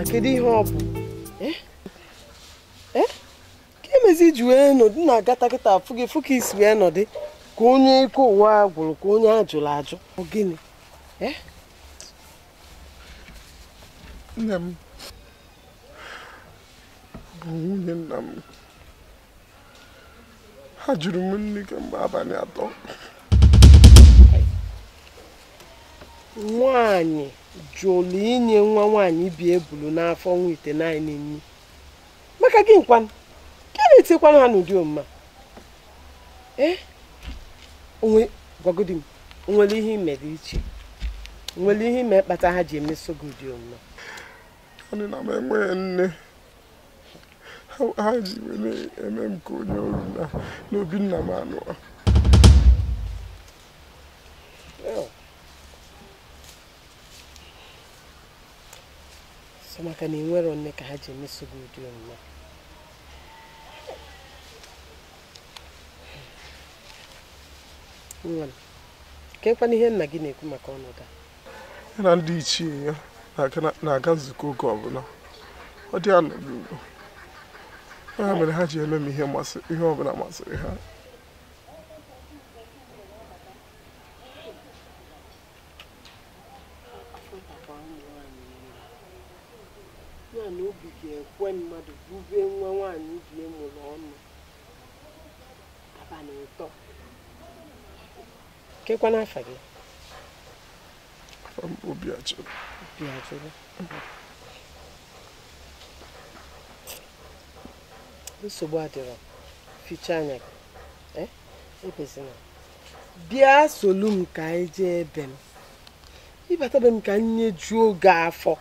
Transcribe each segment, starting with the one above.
a kedu ihe ọ bụ ka emezi iji wee nọdụ na agata kịta afụ gị fụ isi wee nọdụ ka onye ike ụwa gwụrụ ka onye ajụrụ ajụ gịnị nne m bụ nwunye nna m ha jụrụ m nri kemgbe abalị atọ nwaanyị jụlụ inye nwa nwaanyị bi ebulu n'afọ nwa ite naanị nri maka gị nkwanụ ka na-etikwanụ ha n'ụdị omuma eh? gwagodi m nwere ihe ime dị iche nwere ihe ime kpata ha ji emeso gị ụdị omuma anyị na m enweghị nne ha ji were eme m ka onye oru na n'obi nna m anụ maka na enwero nne ka ha ji emeso gị ụdị omume nwa kekwana ihe nna gị na-ekwu maka ọnọdụ ya na ndị ichie ya na-aga nzukọ oge ọbụla ọ dị anọghị ugbo ya mere ha ji eme m ihe ọbụla masịrị ha na obi ga-ekwe mmadụ bubee nwa nwaanyị ubi mụrụ ọnụ abalị ụtọ kekwana afa gị obi ajụrụ obi ajụrụ nsogbu adịrọ ficha anya gị ekwesịna eh? bịa solu m ka anyị jee ebe m ịbata be m ka nne juo oge afọ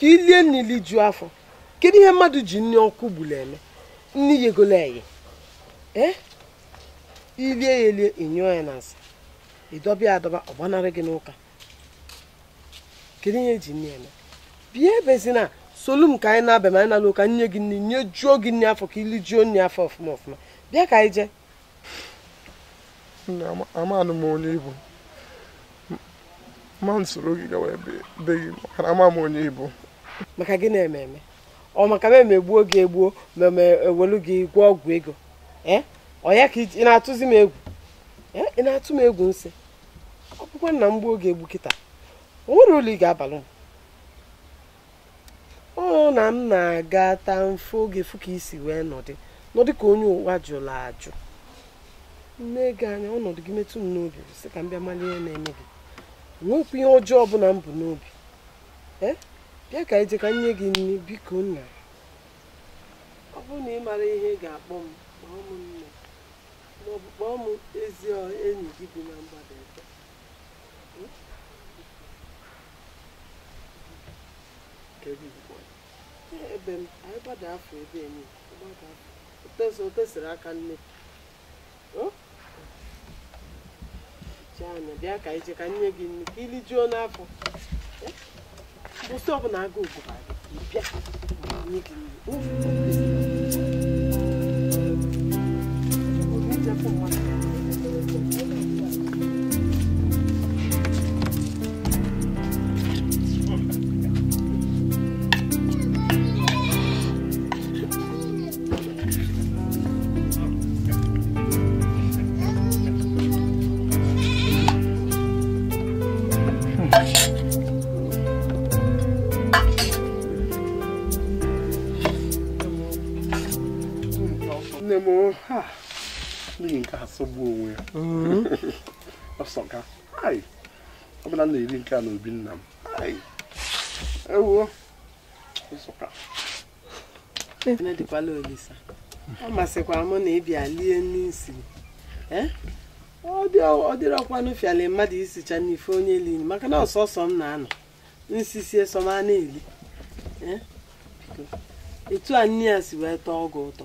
ka ilie nili juo afọ kedu ihe mmadụ ji nni ọkụ gburu eme nni yegolo eye ee ilie ya elie enyụọ ya na nsị ịdọba ya adọba ọ gbanarị gị n'ụka kedu ihe ji nri eme bịa ebezina solu m ka anyị na abịa anyị nala ụka nye gị nri nye juo gị nri afọ ka ili juo nri afọ ọfụma ọfụma bịa ka anyị jee amanụ m onye ibu ma soro gị gawa ebe be onye ibu maka gị na-eme eme ọ maka m emegbuo gị egbuo ma ewelu gị gwa ọgwụ ego ọ ya ka ị na-atụzi m egwu ị na-atụ m egwu nsị ọ bụkwa nna m gbuo gị egbu kịta o nwere ụlọ ị ga-abalị m ọ na m na-aga taa mfe oge fụ ka isi wee nọdị nọdị ka onye ụwa jụrụ ajụ nne gị anya ọnọdụ gị metụ m n'obi sị ka m bịa malie na-eme gị nwekwa ihe ọjọọ ọbụla m bụ n'obi bịa ka ije ka nye gị nri biko nna ọ bụrụ na ị mara ihe ga-akpọ m kpọọ m nne maọbụ kpọọ m ezi enyi gị bi na mgbada ebe ebe m anyị gbada afọ ebe enyi o tesịrị aka nne anya bịa ka ije ka nye gị nri ka ilijuo n'afọ 我所不难过不着。你别，你你，呜。m n'ihi nke ha sọgbuo onwe ya mm-hmm. ọbụla m na-eri nke a na obi nna m ewuo Nsụka dịkwala Olisa hmm. ọ masịkwara mụ na ịbịa lie n'isi ọ dịrị dịrọkwanụ fịala mmadụ isicha n'ife onye lili maka na ọsọsọ m na-anọ nsisie sọma na-eli etu a nne ya si wee tọọ ọgụ ụtọ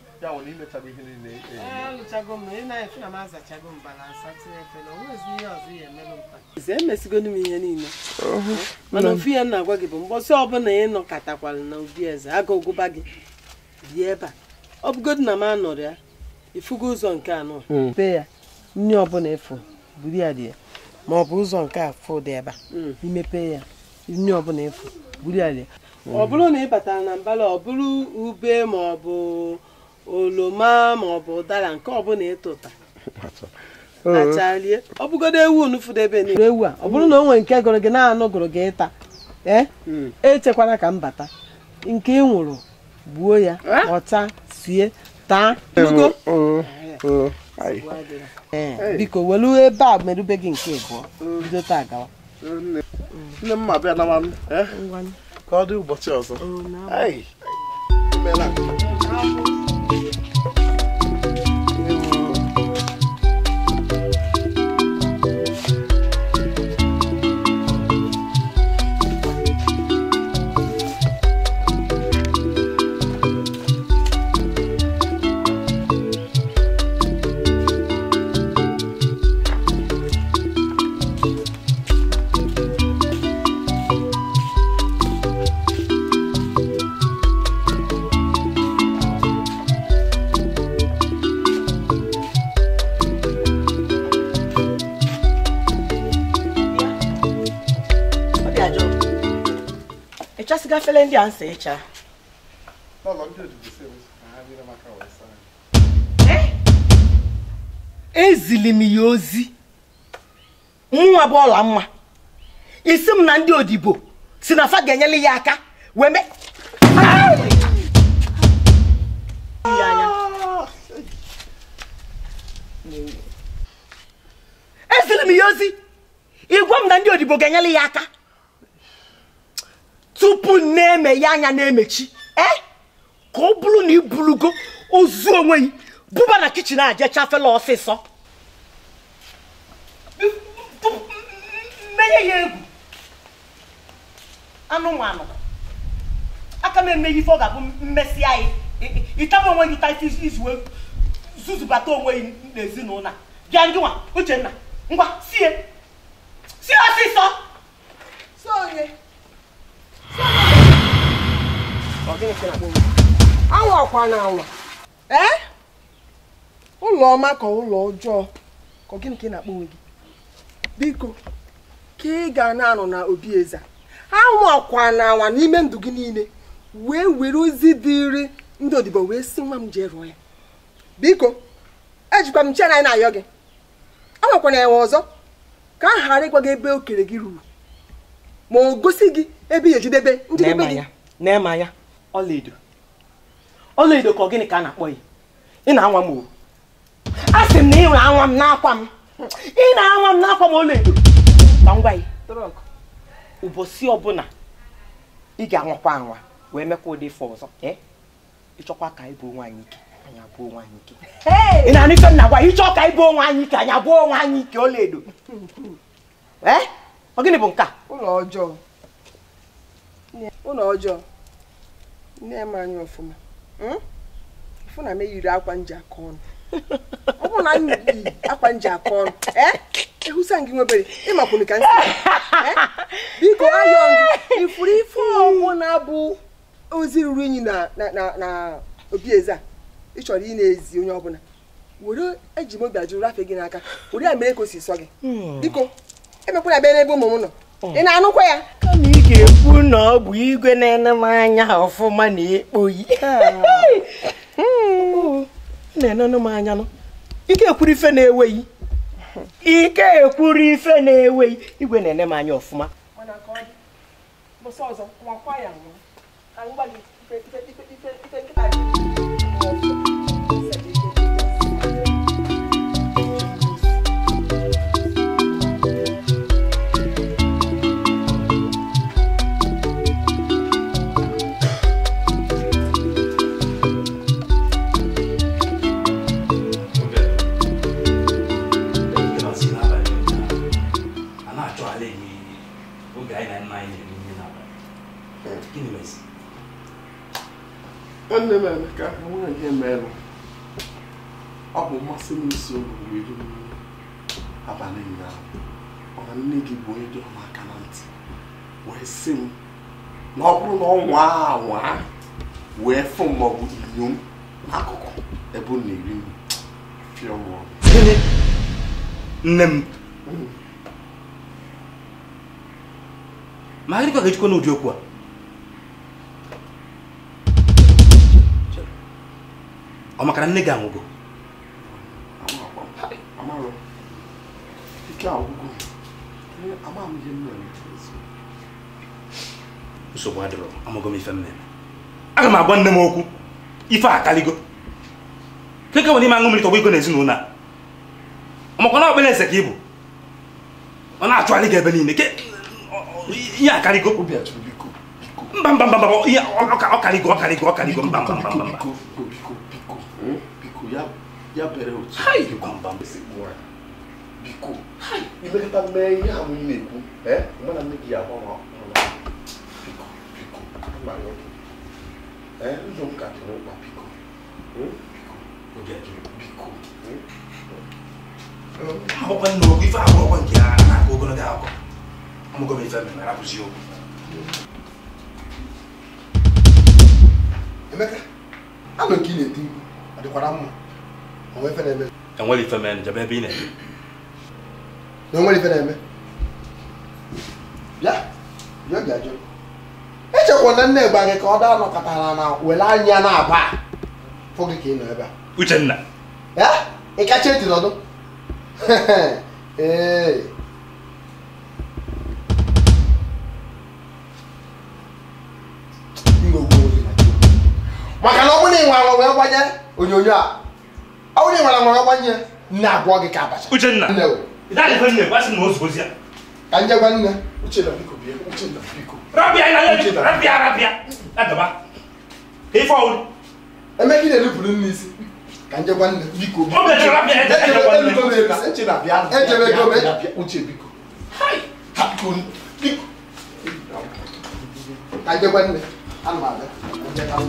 ya bụ na ihe niile e, e, eh, e. alụchago m na na na ihe ya emesigonu m ihe niile mana ofu ya na-agwa gị bụ mgbọsị ọbụla ị nọkọtakwara na obi eze aga gị bịa ebe a ọ bụgodu na m anọrọ ya ifugo ụzọ nke anọ hmm. be ya ọbụla efu buru ya dị ya ma ọ bụ ụzọ nke a hmm. ya ọbụla efu ya dị ọ bụrụ na ị batara na mbala ọ bụrụ ube ma oloma ma ọ bụ ụdara nke ọbụla ịtụta achalie ọ bụgodo ewu nufudebe n'elu ewu a ọ bụrụ na o nwere nke gụrụ gị na-anụ gụrụ gị ịta ee hmm. echekwala ka m bata nke ị nwụrụ gbuo ya ọcha sie taa e, biko welu ebe a merube gị nke abụọ hmm. bido taa gawa hmm. nne m ma bịa na e? ka ọ dị ụbọchị ọzọ efere ndị a nsa ịcha eh? ezili m ya ozi nwa bụ ọla mma isi m na ndị odibo si na fa ga-enyere ya aka wee mee ezili m ya ozi igwe m na ndị odibo ga-enyere ya aka tupu na eme ya anya na-emechi e ka ọ bụrụ na ị burugo ozu onwe gị buba na kichin a jee chafela ọsịsọ menye ya egwu anụmanụ aka m emeghe ife ọ ga-abụ mmesị anyị ịtaba onwe gị taịtụ izu zuzubata onwe gị n'ezinụlọ bịa ndị nwa uchenna ngwa sie sie ọsịsọ sie anwakwa na anwa ee eh? ụlọ ọma ka ụlọ ọjọọ ka gịnị ka ị na-akpọ onwe gị biko ka ị ga na-anọ na obi eza anwakwa na anwa n'ime ndụ gị niile wee were ozi dịrị ndị odibo wee si nwa m jee rụọ ya biko ejikwa m chena na-ayọ gị anwakwana enwe ọzọ ka a ghara ịgwa gị ebe okere gị ruru ma o gosi gị ebe ihe ejedebe njedebe gị na-eme ya ọlaedo ọlaedo ka ọ gịnị ka a na-akpọ ya ị na-anwa m oru a sị m na ị na-anwa m n'akwa m ị na-anwa m n'akwa m ọlaedo ma ngwa gị ụbọchị ọbụla ị ga-anwakwa anwa wee mekwa ụdị ife ọzọ ị ịchọkwa ka anyị bụ nwaanyị ike ị na-anụ ife m na-agwa ịchọ ka anyị bụ onwe anyị ike anyị abụọ onwe anyị ike ọlaedo ọ gịnị bụ nke a ụlọ ọjọọ ụlọ ọjọọ nne m anya ọfụma ụfụna hmm? m eyiri akwa nji aka ọnụ ọ bụrụ na anyị yi akwa nji aka ọnụ e, ehụsa gị nwebere ịmakwụrụ ka e, biko ayọ gị ifuru ife ọbụla bụ ozi ruru unyi na na obi eze a ị chọrọ ị na-ezi onye ọbụla were eji mobi ajụrụ afe gị n'aka were ya mere ka o si sọ gị hmm. biko emekwana bịa n'ebe ụmụ m nọ hmm. ị na-anụkwa ya kama ị ga-ekwu na ọ bụ igwe na-ele m anya ọfụma na-ekpoghi hmm. na-enenụ m anya ekwuru ife na-enweghị ike ekwuru ife na-enweghị igwe na-ene m anya ọfụma ọzọ nwanne m emeka nwaanyị emeela ọ bụ mmasị m isi obodo iri abalị ụnyaahụ mana nne gị bụ onye dị ọma aka na ntị wee sị m na ọ bụrụ na ọ nwaa anwa wee fụ m maọbụ inyo n'akụkụ ebe m na-eri m fịọ m nne m mm. ma ha dịkwa ga-ejikwa n'ụdị okwu a ọ makara nne gị anwụgo nsogbu adịrọ amago m ife m aga m agwa nne m okwu ife a akaligo keke nwere ime aṅụ mmiri tọgbọ n'ezinụlọ a ọmakwa na ọkpere eze ka ị bụ ọ na-achụgharị gị ebe niile ihe akarịgo mba mba mba mba mba mba mba ya bẹ̀rẹ̀ òtún. hayi gbàǹbà mbese gbọ́ra biko hayi. ibe kata mẹ ihe amu yi na-ekwu ẹ mgbe na mmegi ahụ ọma ọma biko biko ama ya ọdụ ẹ ụzọ m ka dị n'ụkpa biko biko oge dị biko. akwụkwọ nna okwu ife akwụkwọ nke a na-akọ ogologo akọ amụgo m ife mere abụzi okwu. Emeka, anọ nke ị na-eti mkpu, ọ dịkwara mma? E enwere ife mere njebe ebe ị na-eme na onwere ife na-eme bịa bịa bịa jụ echekwa na nne gba ka ọ anọ nọkọtara na were anya na-aba fụ gị ka ị nọ ebe a uchenna ya ị kacha eti n'ọdụ ee maka na ọ bụrụ na ị nwe wee gbanye onyonyo a Na aure nwara nwara ọgbanye nne agwọ gị ka abacha uchenna nne o ịdalife nne gwasị na ozugbo ya ka nje gwa nne uchenna biko bie uchenna biko rabia ị na-anya rabia rabia adaba ife ọwụ emeka ị na-erupụrụ nne isi ka nje gwa nne biko ejebe ego uche biko biko ka nje gwa nne anụ abịa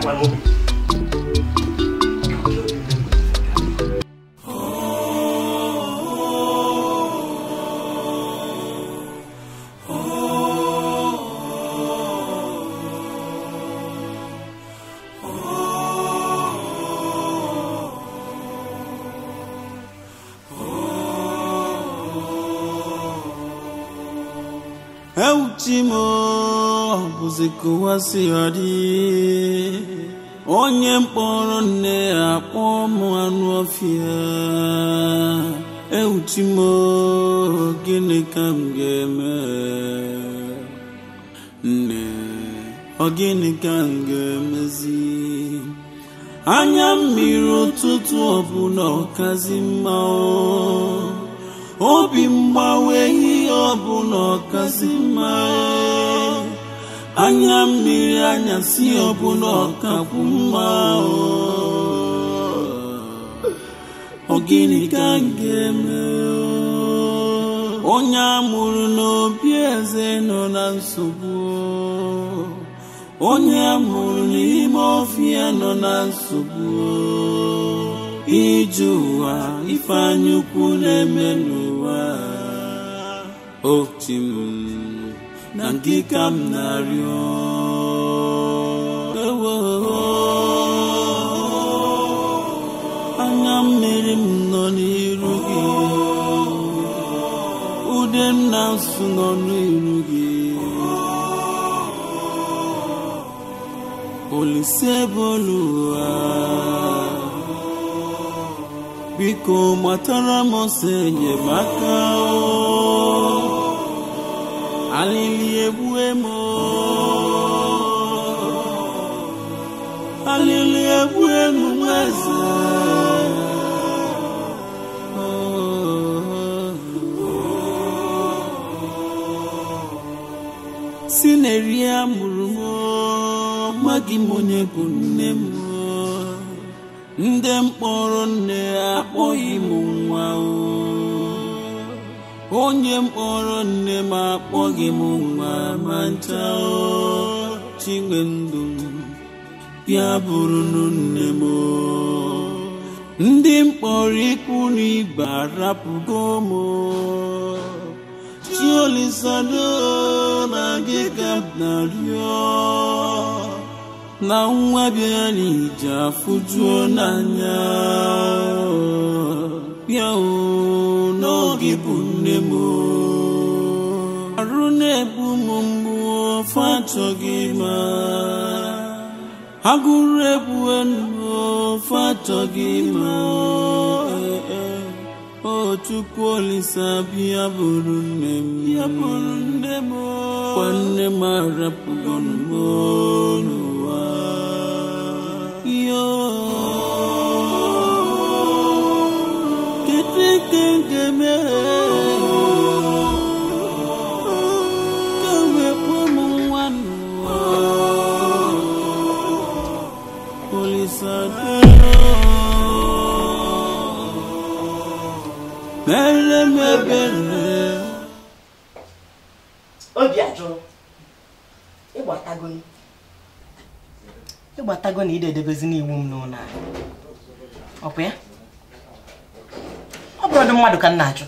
that one will zikụwasịghadị onye mkpọrọ nne akpọ m anụ ọfịa ewuchi m gịnị ka m ga-eme nne ọ gịnị ka m ga-emezi anya mmiri ụtụtụ ọbụla ọkazi mma obi mgbanwe ihe ọbụla ọkazi mma anya mmiri anyasị ọbụla ọkakwu mma ọ gịnị ka m ga-eme onye amụrụ n'obi eze nọ na nsogbu onye amụrụ n'ime ofi nọ na nsogbu ije ụwa ife anyaukwu na-eme n'ụwa ochim na nkịka m na-arịọ anya mmiri m nọ n'iru gị ude m na nsụ nọ n'iru gị olise ebe biko matara m ọsọ enyemaka o alili egbue m alili egbue m nwa eze si na-eri ya mụrụ m nwa gị m bụ nne m ndị mkpọrọ nne akpọghị m nwa o onye mkpọrọ nne m akpọghị m nwa ma nta chinwe ndụ ya bụrụ nne m ndị mkpọrọ ikwu na ibe arapụgo m chiolisado na gị na na nwa bịa n'ije afụjuo n'anya bịa n'oge bụ arụne m aru fatogima. na-egbu m mgbu ofe achọghị ma agụrụ egbue ndụ ofe achọghị ma eh, eh. o Chukwu Thank you. mere m ebere obi ajụrụ ịgbatago ịgbatago na ide edebezi n'iwu m n'ụlọ ọ bụ ya ọ bụrụ dị mmadụ ka m na-ajụ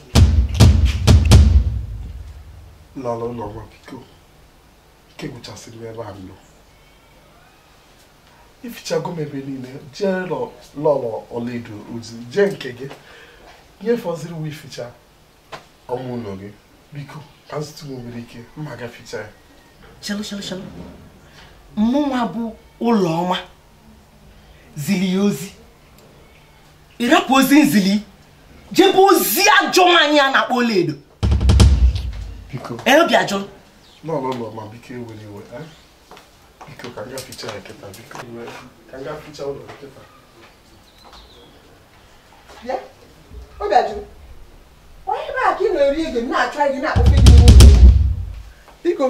n'ala ụlọ nwa biko ike gwụchasịrị ebe a nọ ifichago m ebe niile jee lọlọ ọlaedo ozi jee nke gị nyefọziri uwe ficha ọmụ gị biko ka nwere ike mma ga ficha ya chelụ mụnwa bụ ụlọ ọma zili ya ozi ịrapụ ozi nzili jebe ozi ajọ a na-akpọ ọlaedo obi ajọ biko e eh? biko ka nga ficha ọ bịajụ onye be aka ị na na-achọ na gị biko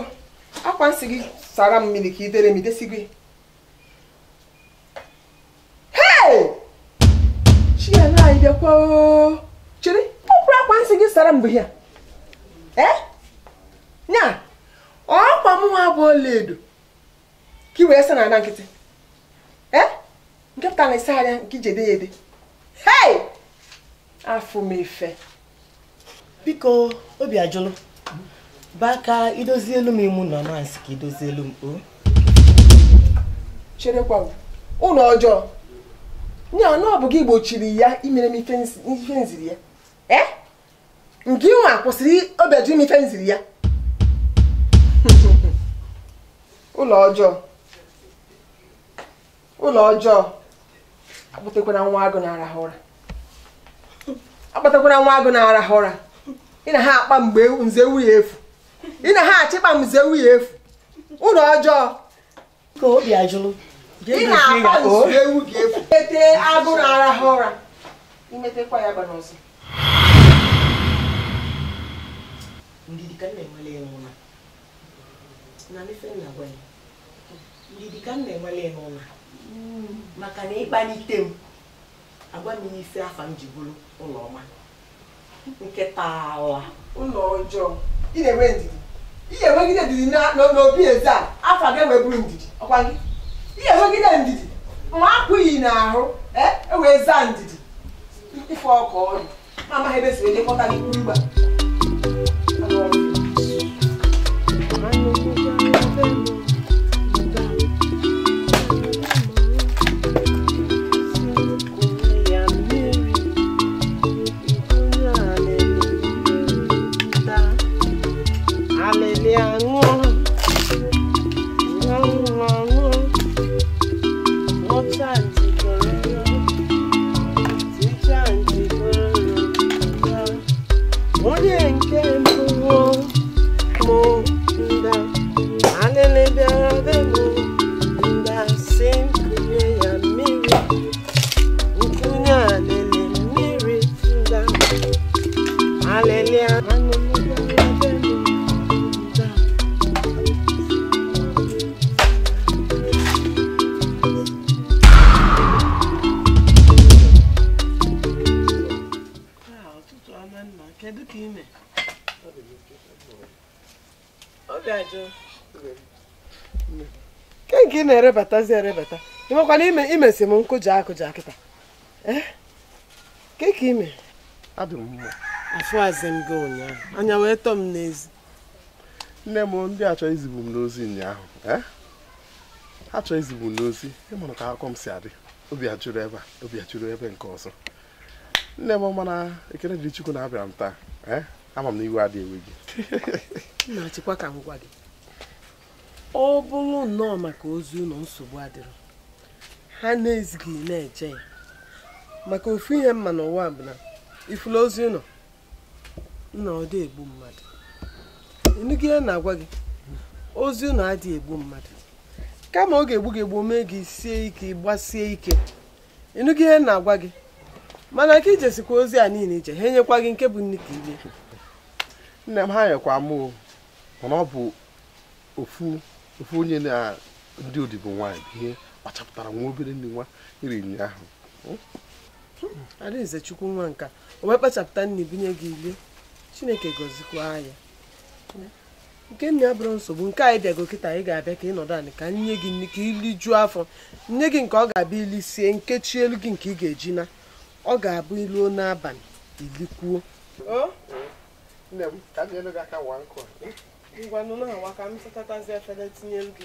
akwa nsị gị sara m mmiri ka i dere m idesi gị chiana anyị chere akwa nsị gị sara mbụ ya ee ọkwa m nwa bụ edo ka i wee sa na ana nkịtị e? nke pụta na anya nke ya afọ m efe biko obi ajụlụ baka idozi elu m imu na mansị ka idozi elu m o cherekwa ụlọ ọjọọ nye na ọ bụ gị gbochiri ya imere m ife nziri ya e, nke ịnwa kwụsịrị obeju m ife nziri ya ụlọ ọjọọ ụlọ ọjọọ akpụtakwana nwa agụ na ụra akpatakwara nwa agụ na-arahụ ụra ị na ha akpa mgbe nze efu ị na ha achịkpa mgbe nze nwunye efu ụlọ ọjọọ ka obi ajụrụ ị akpa ewu efu agụ arahụ ụra imetekwa ya hmm. maka na ịkpalite m agwa m ife afa m ji bụrụ ụlọ ọma nke taala ụlọ ọjọọ ị na-enwe ndidi ị ga-enwegide ndidi n'obi eze a afa gị enweburu ndidi ọkwa gị ị ga-enwegide ndidi ma apụghị n'ahụ e, e wee zaa ndidi ife ọka ọrụ ma amaghị ebe e si wee jekọta gị mgba ke nke ị na-erebatazi erebata ịmakwana ime imesi m nkụja akụja kịta eh? ke ka ime afụazị m gị ụnyaahụ anya wee tọọ m n'ezi nne m ndị achọ izigbu m n'ozi ụnyaahụ eh? ha chọọ izigbu m n'ozi ịmụrụ ka akụkọ m si adị obi ajụrụ ebe a obi ajụrụ ebe nke ọzọ nne m mana ekele jiri Chukwu na-abịara m taa eh? ama m na iwe adịghị ewe gị ọ bụrụ nnọọ maka ozi ụlọ nsogbu adịrọ ha na-ezighị na-eje ya maka ofu ihe mma n'ụwa bụ na ifula ozi ụlọ nna egbu mmadụ enugị ihe na-agwa gị ozi ụlọ adịghị egbu mmadụ kama oge egbu gị egbu mee gị sie ike gbasie ike ịnụgị ihe na-agwa gị mana ka ijesikwa ozi a niile ije ha enyekwa gị nke bụ nne ka ile nne m ha nyekwa mụ mana ọ bụ ofu ofe onye na ndị odibo nwaanyị bụ ihe kpachapụtara nwa obere ndị nwa iri nri ahụ hmm? hmm. adaeze chukwu nwa nka o wee kpachapụta nne binye gị ile chineke gozikwa ya nke nne abụrụ nsogbu nke anyị bịago kịta anyị ga-abịa ka ị nọdụ anị ka nye gị nne ka irijuo afọ nne gị nke ọ ga-abịa ili sie nkechi elu gị nke ị ga-eji na ọ ga-abụ iluo n'abalị ilikwuo oh. ngwa na awa nwa ka m sachatazie efere tinye ndụ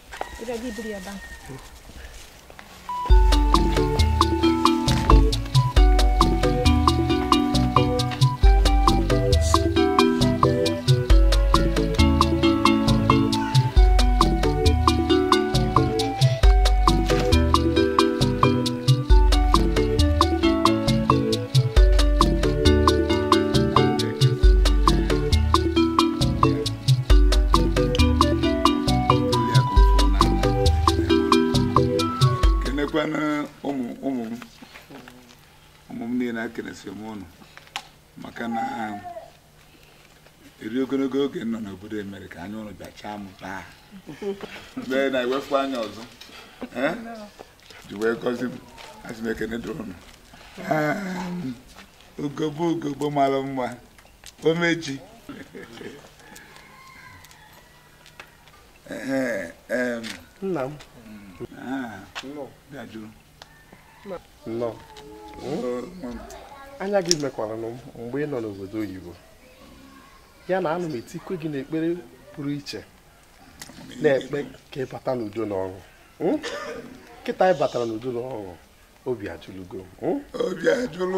Biraz iyi bir yerden. niile m ụnụ maka na um, eri ogologo oge nọ n'obodo emere ka anya ụnụ bịachaa m taa mgbe na-ewepụ anya ọzọ ji wee gọzi m asị m ekene dụrụ m um, ogogbo ogogbo mara mma omeji nna m ah, bịa jụrụ anya gị mekwara mgbe ị nọ n'obodo oyibo ya na anụ m etikwe gị n'ekpere pụrụ iche na-ekpe ka ị bata n'udo na ọṅụ nkịta hmm? ị batara n'udo na ọṅụ obi ajụlugo hmm? obi ajụlụ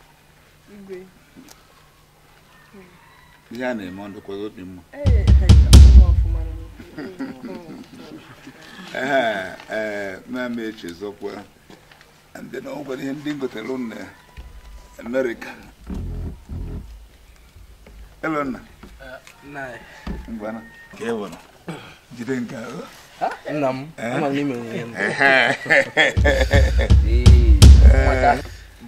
ihe a na-eme ndụkwago obi mma ee eh, eh, na-ama eche zọkwa ndị na ihe ndị gotere eh, na amerịka elona jide nke nna m Ee,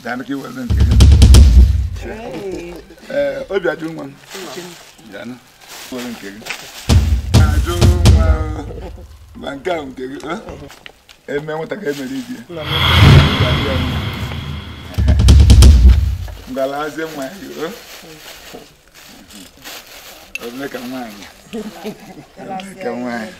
Danke, well, then. Hey. Eh, obi adu nwa. Jana. Well, nke gị. Adu nwa. Ma nke a ah, nke gị. Ah, Eme nwata ka emere ibi. Ngala azie nwa ya. Ọ bụ ka nwaanyị. Eh? Ka nwaanyị.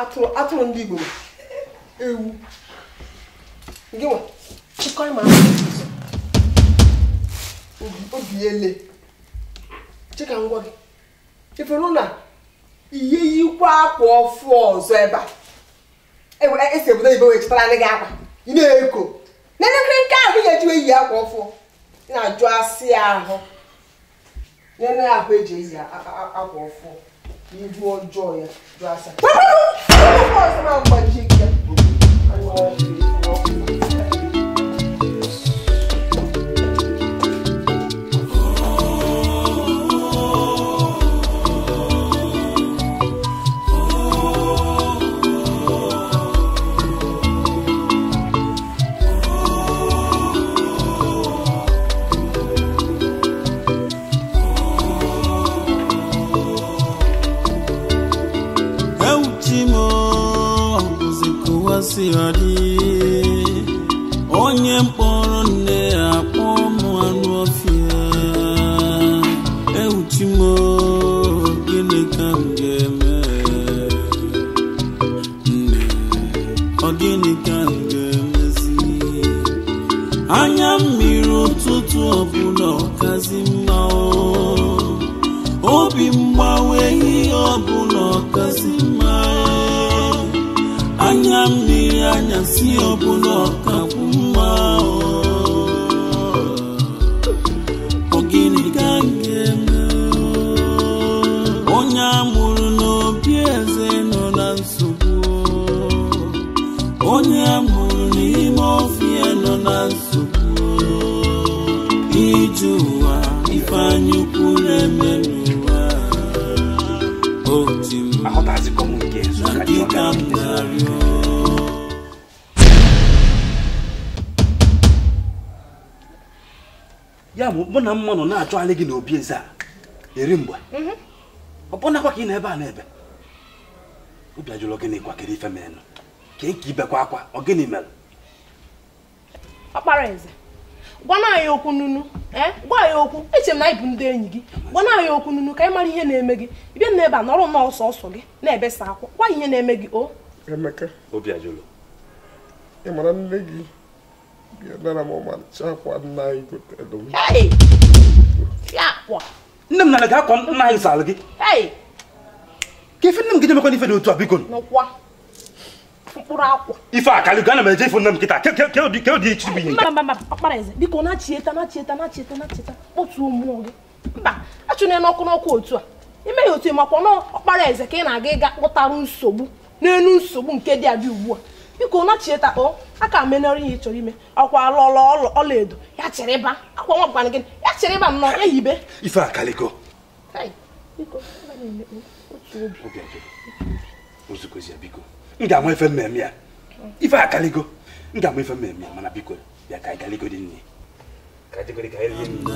atụrụ atụrụ ndị igbo ewu gị nwa chịkọrọ ma obi ele chika ngwa gị ifenụ na ihe yikwa akwa ọfụ ọzọ ebe a esi e obodo oyibo wee chịtara ndị gị akwa ị na-eko n'elekere nke ahụ ihe ejiwe eyi akwa ọfụ na-ajụ asị ahụ n'ele ahụ eji eyi akwa ọfụ ihu ọjọọ ya Glass. Woo! Woo! si dị onye mkpọrọ nne ya ụmụ m anụ ọfịa ewuchi m gịnị ka m ga-eme nne ọ gịnị ka m ga-emezi anya mmiri ụtụtụ ọbụla ọkazi mma obi mgbanwe ihe ọbụla anya si ọbụla ọkakwụ mma ogini ka nke onye amụrụ n'obi eze nọ na nsogbu onye amụrụ n'ime ọfịa nọ na nsogbu ije ụwa ifeanya ukwu na-eme n'ụwa Otu m na dịka m ya bụ mụ na mma nọ na-achọgharị gị n'obi eze a eri mgbe mhm. ọbụnakwa ka ị na-ebe a na-ebe obi ajụrụ ogịnị kwa kere ife menụ kee nke ibekwa akwa gịnị mere ọkpara eze gbana anyị okwu nunu eh? gwa anyị okwu eche m na ịbụ ndị enyi gị gbana ya okwu nunu ka anyị mara ihe na-eme gị bịa na ebe a nọrọ nnọọ ọsọ ọsọ gị na-ebesa akwa gwa ihe na-eme gị o emeka obi ajụrụ ị mara nne gị Yalala mama, chapwa na iku telo. Hey! Chapwa! Nem na naga kon na isa lagi. Hey! Kefin nem gideme kon ife do tu abikon. No kwa. Fukura akwa. Ife akali gana me je nem kita. Ke ke ke di ke di chibi ni. Mama mama, akpara eze. Biko na chieta na chieta na chieta na chieta. Otu omu oge. Mba, achune n'ọkụ n'ọkụ otu a. Ime ya otu ịmakwa n'ọkpara eze ka ị na-aga ịga kpụtarụ nsogbu n'elu nsogbu nke dị abịa ugbu a. biko nachitakpọ a ka menọrọ ihe ị chọrọ ime ọkwa lọla ọla edo ya chịrịba akwa nwa gwana gị ya chịrịba nnọọ ya yibe ife akaliko m ga-ama ife mmemme ya ife akaliko m ga-ama ife mmemme ya mana biko ya ka ịgaliko dị nne ka jegori ka eri nri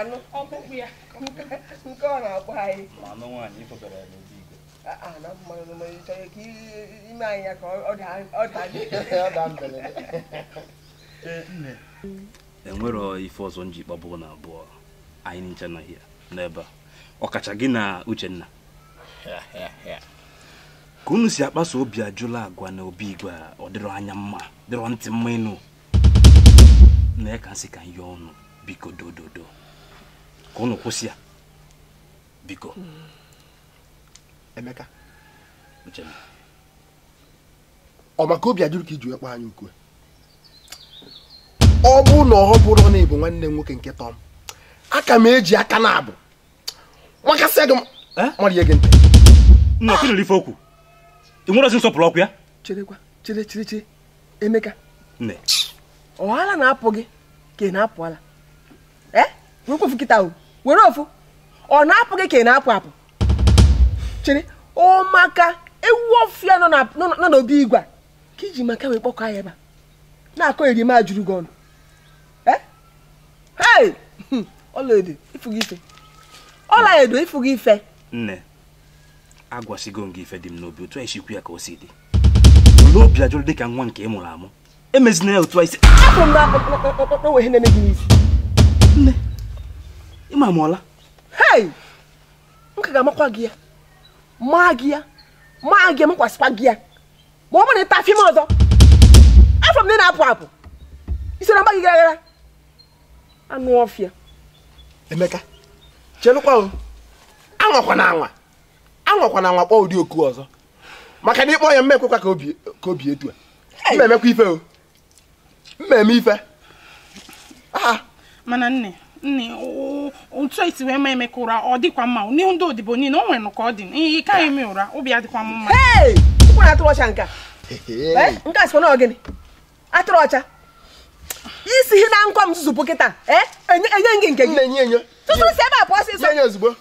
anụ ọkpụkpụ ya nke ọ na-akpọ anyị chọrọ ka ime anyị ya ka ọ daa e ife ọzọ nji kpabụ na abụọ anyị nche nọghị n'ebe a ọkacha gị na uchenna ka unu si akpaso obi ajụla agwa na obi igwe a ọ dịrọ anya mma dịrọ ntị mma ịnụ na ya ka nsị ka nye ọnụ biko dododo ka unu kwụsị ya biko Emeka ọ maka obi ajụrụ ka iji ekpe anyị ukwe ọ bụ na ọ bụrụ na ịbụ nwanne nwoke nke tọm aka m eji aka na abụ makasịa gị marie gị ntị nna ọkụ nere ife okwu ị nwere ozi nsọpụrụ ọkụ ya cherekwa chere chere chere Emeka nne ọhala na-apụ gị ka ị na-apụ ala ee nkwofu kịta o were ofu ọ na-apụ gị ka ị na-apụ apụ chere ọ maka ewu ọfịa nọ n'obi igwe ka iji maka wee kpọkọ ya ebe na-akọ erima juru gị ọnụ ee ọlaedo ịfụgo ife ọlaedo ịfụgo ife nne agwasigo m gị ife dị m n'obi otu anyị sikwu ya ka o si dị olee obi ajụrụ ka nwa nke ị mụrụ amụ emezina ya otu anyị si apụ m na akpọkpọ na-eme gị n'isi nne ịma m ọla hei m ka ga-amakwa gị ya maa gị ya maa gị makwasịkwa gị ya ma ọ bụrụ na ịta afim ọzọ afọ m na na-apụ apụ isi na mgba gị gara gara anụ ọfịa emeka chelụkwa anwakwa na anwa anwakwa na anwa kpọọ ụdị oku ọzọ maka na ịkpọ ya mma ekwekwa ka obi etu a mma ife o mma ife aha mana nne nne otu esi wee ma emeka ụra ọ dịkwa mma n'ihu ndị odibo niile o nwere ka ọ dị ihe ka anyị eme ụra ụbịa dịkwa m mma atụrụ ọcha nke a sị na gịnị atụrụ ọcha isi ihe na nkwa m zụzụpụ kịta enye gị nke gị tutu si ebe a pụọ ọsịsọ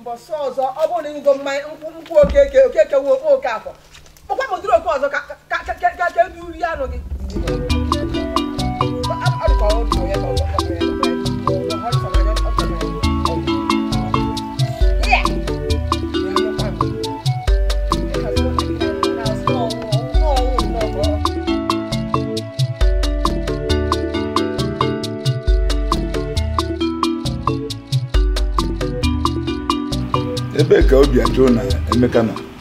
mbọsị ọzọ ọ bụrụ na ịgo mmanya nkwụ oke oke oke oke afọ ọkwa ma odiri oke ọzọ ka e uri ya anụ gị ebee ka obi ajụ na Emeka na.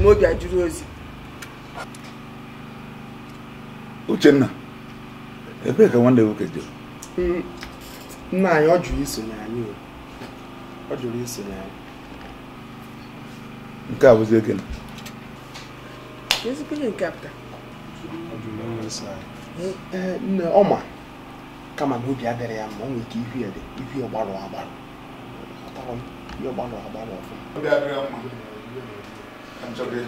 m obi ajụrụ ozi Uchenna ebee ka nwanne nwoke jere mm. nna anyị ọ jụrụ isonye anyị ọ jụrụ isonye anyị nke a bụzi ekene ezigbo ihe nke apụta eh, eh, nne ọma kama na obi adịrị ya mma ọ nwere ike ihu ya dị ihu ya gbarụ agbarụ ihe ọgbarụ agbarụ ọfụma Anjoge.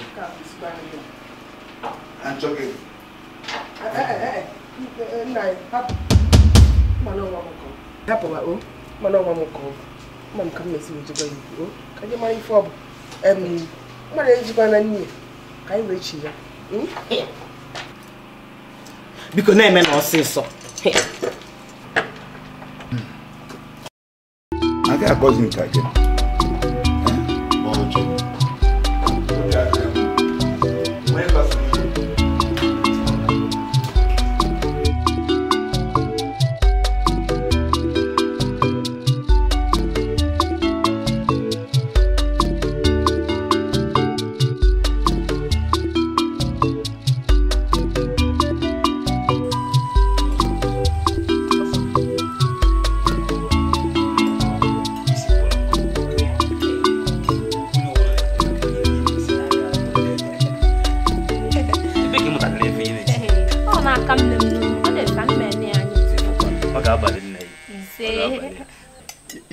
Anjoge. Eh eh eh. Nai, eh. hap. Eh, eh, Mano wa mko. Hapa wa o. Oh? Mano wa mko. Mam kam mesi ujigo yi o. Oh? Kaje mari fob. Em. Mara ujigo na ni. Kai we chi ya. Hmm? Biko na eme na osiso. Aga cousin kake.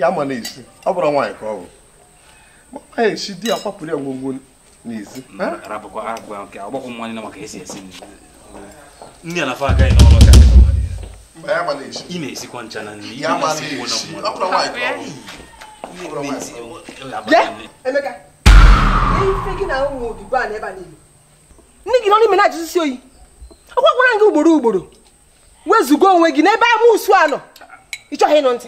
ama na ọ bụrụ nwaanyị ka ọ bụ nwaanyị esi di ya kwapụrụ ya ngwongwo n'ezi ka ị na-esikwa na nri nne gị nọ n'ime na-ajụsisi oyi ọ gwara gị ugboro ugboro wezugo onwe gị n'ebe ama usu a nọ ị chọghị ịnụ ntị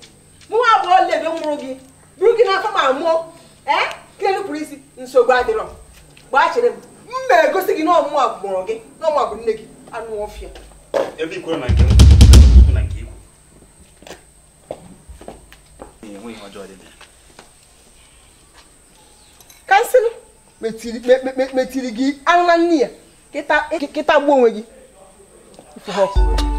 mụ nwa abụọ lebe mụrụ gị bụrụ gị n'afọ ma mụọ ee ka enupụrụ isi nsogbu adịrọ gbachiri m mba egosi gị na ọmụmụ abụmụrụ gị na ọmụ abụ nne gị anụ ọfịa ebe ikwere na nke na nke ikwu enweghị ọjọọ dị kansịl metiri gị anụ na nne ya kịta gbuo onwe gị ife ha ọkụ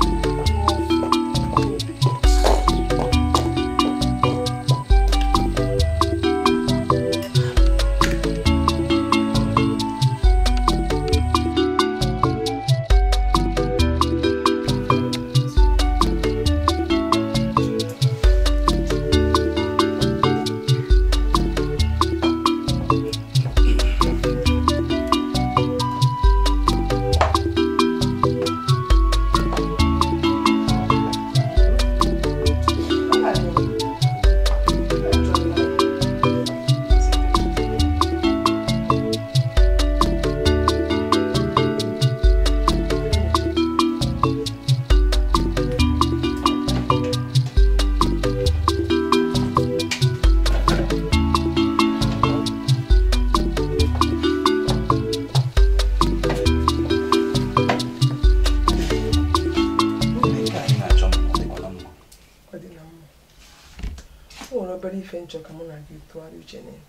ife nchọ ka mụ na gị tụgharị uche na ya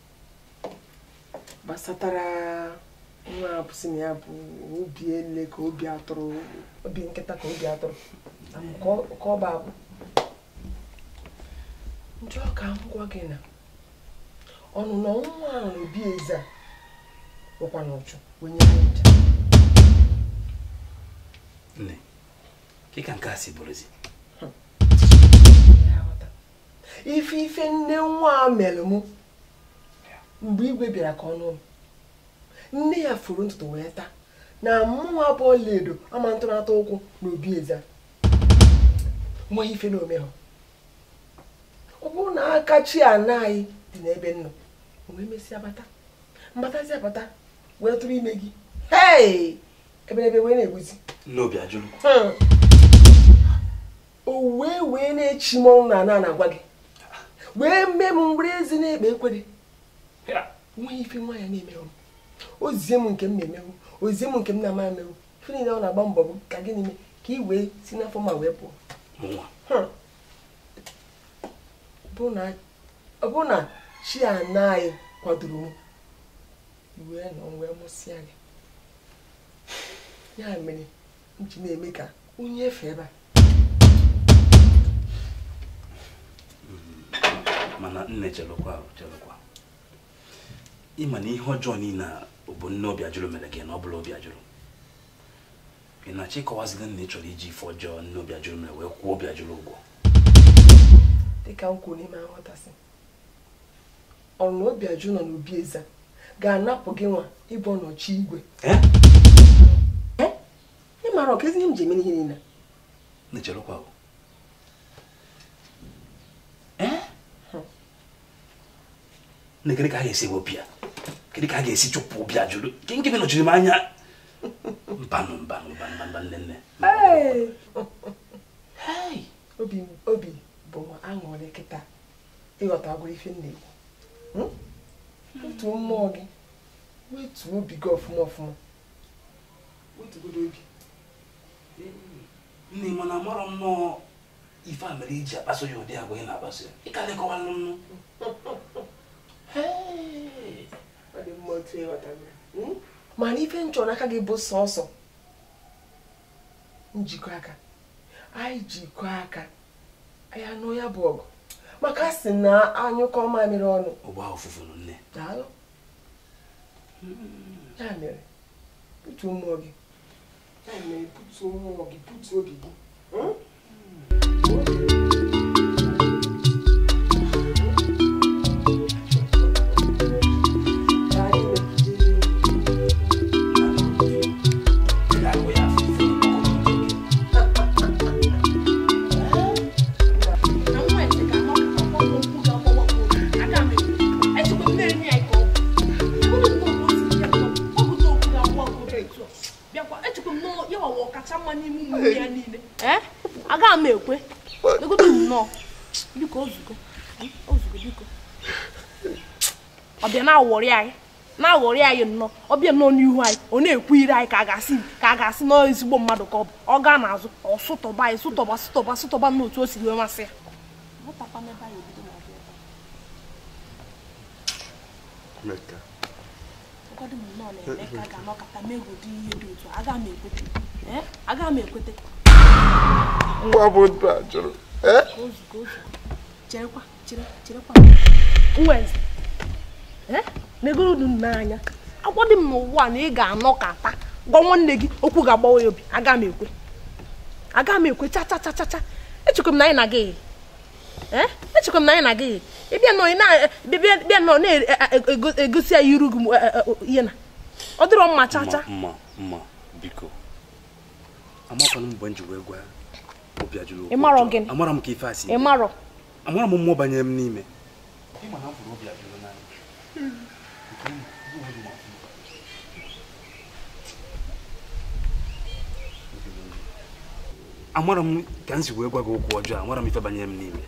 gbasatara nwa abụsị na ya bụ obi ele ka obi atụrụ obi nkịta ka obi atụrụ ka ọ bụ ndị njọ ka m gwa gị na ọnụnọ ụmụ nwa ahụ na obi eze a onye nne kịka nke a si bụrụzi ife ife nne nwa mere mụ mgbe igwe bịara ka ọnụ m nne ya furu ntutu wee taa na mụnwa bụ ọlaedo ama ntụnata ụkwụ na obi eze nwee ife na ome ha ọ bụrụ na aka chi ana anyị dị n'ebe nnọ wee mesịa bata mbatazia bata wee tụrụ ime gị hei eberebe wee na-egbuzi n'obi ajụrụ hmm. o wee wee na-echi m mọnwụ na ana na-agwa gị wee mee m were ezi na-ekpe ekwere nweghị ife nwa ya na-emerụ ozizie m nke m na-emerụ ozizie m nke m na-ama emerụ ife niile ọ na-agba mbọ bụ ka gịnị ka ị wee si n'afọ ma wee pụọ hmm. ọ bụrụ na chi ana anyị kwadoro m wee nọ wee mụsịa gị ya mere m ji na-eme ka onye efe ebe a mana nne chelụkwa chelụkwa ma na ihe ọjọọ niile bụ nne obi ajụrụ mere gị na ọ bụla obi ajụrụ ị na-achọ ịkọwazila nna ị chọrọ iji ife ọjọọ nne obi ajụrụ mere wee kwụọ obi ajụrụ ụgwọ dịka m n'ime nghọtasị ọrụ na obi ajụ nọ n'obi eze ga-anapụ gị nwa ịbụ ọnọchi igwe ị ọka ezi ihe m ji eme ihe niile na-echelụkwa bụ na kedu ka a esi wepụ ya kedu ka a ga-esi chụpụ obi a gị nke nọchiri m anya mbanụ mbanụ mba nne nne obi bụ aṅụrị kịta ịghọtagwo ife na ị mmụọ gị obi gị ọfụma ọfụma nne na amarọ nnọọ ife a mere iji e akpaso ya ụdị agwa ị na-akpaso ya mana ife m chọrọ n'aka gị bụ sọsọ njikọ aka anyị jikọ aka anyị anụ ya bụ ọgụ maka sị na anyụkọ mere ọnụ ọgba ofufuru nne daalụ ya mere butuo mmụọ gị ya mere butuo mmụọ gị butuo obi gị hmm? na m ekwe egobe m nnọọ biko ozugo ozugo biko ọbịa na-awọrị anyị na anyị nnọọ ọbịa nnọọ n'ihu anyị ọ na-ekwu iri anyị ka a ga-asị ka a ga-asị na ezigbo mmadụ ka ọ bụ ọ gaa n'azụ ọ sụtọba anyị sụtọba sụtọba sụtọba n'otu o siri wee masị ya agaghị m ekweta mgbe ọ bụ a jụrụ e? e? n'anya dị m na ị ga-anọ ka ata gwa nwanne gị okwu ga-agbawa ya obi aga m ekwe aga m ekwe cha cha cha na anyị na gị e? echekwa na anyị na gị egosi ya ọ dịrọ mma cha amara m ka ife asị amara m mmụọ banyere m n'ime amara m ka m si wee gwa gị okwu ọjọọ amara m ife banyere m n'ime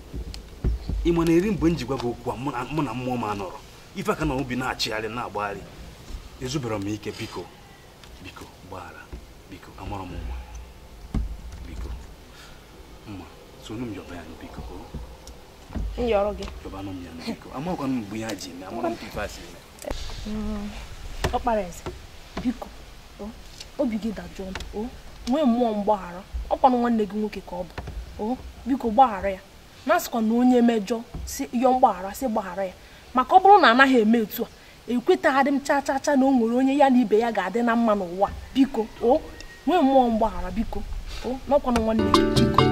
ị ma na eri mgbe m ji gwa gị okwu a mụ na mmụọ m anọrọ ife aka na obi na-achịgharị na-agbagharị ezubere m ike biko biko gbaghara biko amara m mma sonu m yọba ya biko yọrọ gị yọbanụ m ya biko amakwanụ m mgbe ya ji eme amara m ife asị eme ọkpara eze biko obi gị dajụọ o nwee mmụọ mgbaghara ọkwanụ nwanne gị nwoke ka ọ bụ o biko gbaghara ya na-asịkwa na onye mejọ si yọọ mgbaghara si gbaghara ya maka ọ bụrụ na anaghị eme etu a adị m chaa chaa cha na o nwere onye ya na ibe ya ga-adị na mma n'ụwa biko o nwee mmụọ mgbaghara biko o n'ọkwanụ nwanne gị biko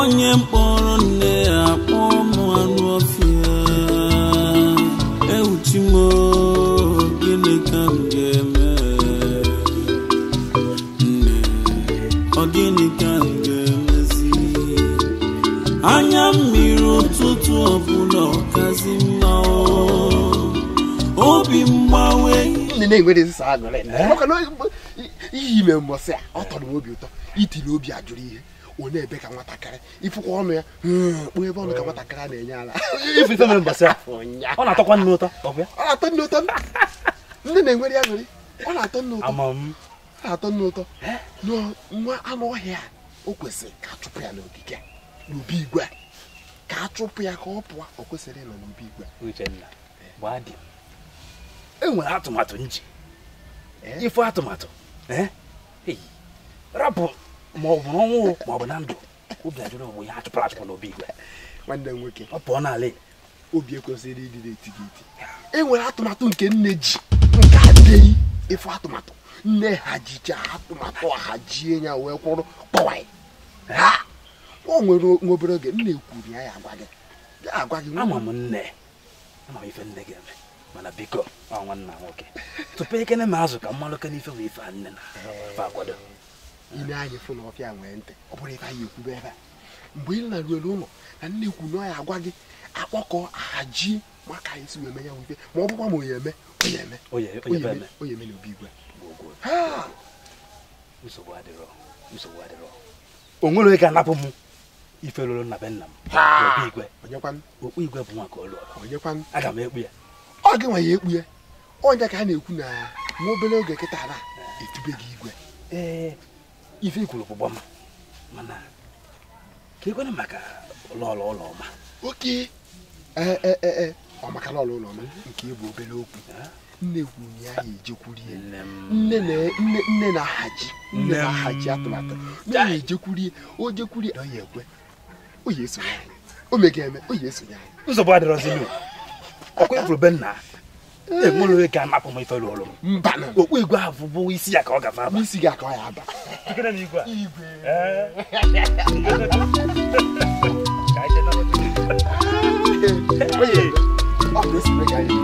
onye mkpọrọ nne ya kpọọ anụ ọfịa ọbụla ọkazi mma ime mbọsị a ọ tọrọ obi ụtọ itiri obi ajụrụ ihe onye ebe ka nwatakịrị ịfụkwa ọnụ ya hmm, kpụọ ebe ọnụ ka nwatakịrị na-enye ala ọ na-atọkwa nne ụtọ na-enwere ya nwere ọ na-atọ nne ụtọ ọ na-atọ nne ụtọ nwa anụ ọhịa o kwesịrị ka a chụpụ ya n'ogige n'obi igwe a ka a chụpụ ya ka ọ pụọ o kwesịrị ịnọ n'obi igwe Uchenna eh. gbaa enwere atụmatụ nji eh? ife atụmatụ eh? rapụ ma ọ bụ n'ọnwụ ma ọ bụ na ndụ obi ajụrụ onwe ya achụpụrụ achụpụ n'obi igwe nwanne m nwoke ọ pụọ n'ala e. obi ekwesịrị ịdị na-eti gị enwere atụmatụ nke nne ji nke adịghị ịfụ atụmatụ nne hajicha atụmatụ ahajie ya wee kwụrụ kpọwa ha o nwere nwa obere oge nna ekwuru ya ya agwa gị agwa gị ama m nne ama m ife nne gị eme mana biko ọ nwanna nwoke tupu ekene ma azụ ka mmanụ kene ife bụ ife a nne na fa akwado ile anyị fụ na ọfịa nwee ntị ọ bụrụ ebe anyị ekwube ebe a mgbe ị laruelu ụlọ na nne ekwu na ya agwa gị akpọkọ ahaji maka anyị si wee ya ife ma ọ bụkwa ma onye eme onye eme o nwere anapụ ife lụrụ na be nna m okpu igwe bụ nwa ka ọ lụọ aga m ekpu ya ọ gị nwe ya ekpu ya onye ka ha na-ekwu na nwa obere oge kịta na eh. etube gị igwe ee eh, ife ikwuru bụ gbama mana ka ekwere maka ụlọọrụ ụlọ ọma oke eh, ọ ụlọ ọma nke ịbụ obere okwu nne ya ejekwuru nne na-ahaji nne na-ahaji atụmatụ onye esonye anyị ome ga-eme onye esonye anyị nzọbụ adịrọzi m ọkwa ifuru be nna enwere onye ka anapụ m ifere ọrụ mba na okpu igwe ahụ bụ isi ya ka ọ gafe aba isi gị ka ọ ya aba onye ọ bụ esonye anyị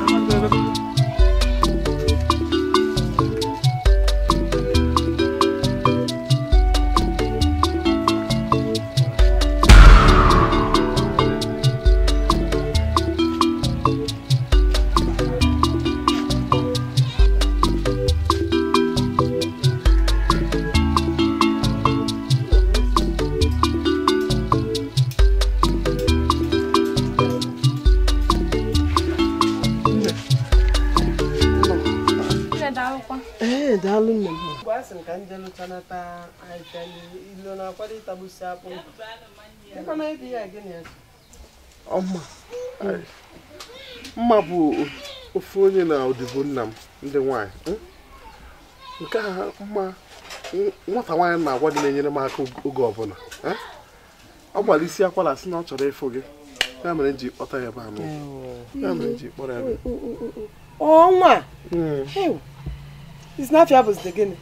Nne daalụ nne m. a ka ilo akpụ. ya gịnị Ọma. Mma bụ ofu onye na odibo nna m ndị nwaanyị. Hmm? Nke a mma nwata nwaanyị na-agwa gị na-enyere m aka oge ọbụla. Hmm? Ọ gbara isi akwara sị na ọ chọrọ ịfụ gị. Ya mere ji kpọta ya ebe Ya mere ji kpọrọ ya Ọnwa. Hmm. Snapchat bụzi gịnị?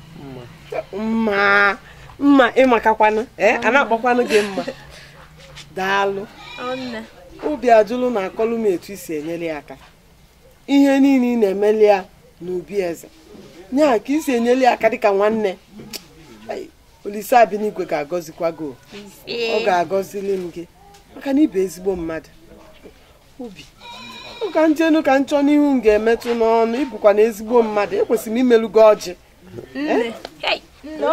mma mma ịmakakwanụ eh, eh, a na-akpọkwanụ gị mma daalụ obi ajụlụ na-akọlụ m etu isi enyere ya aka ihe niile ị na-emeli ya n'ubi eze nyaa ka isi enyere ya aka dịka nwanne Olise Abinigwe ga-agọzikwa gị ọ ga-agọzili m gị maka na ibe ezigbo mmadụ ụka ndị elu ka nchọ n'ihu m ga-emetụ n'ọnụ ịbụkwa na ezigbo mmadụ ekwesịrị m imelu gị ọjị nne eh?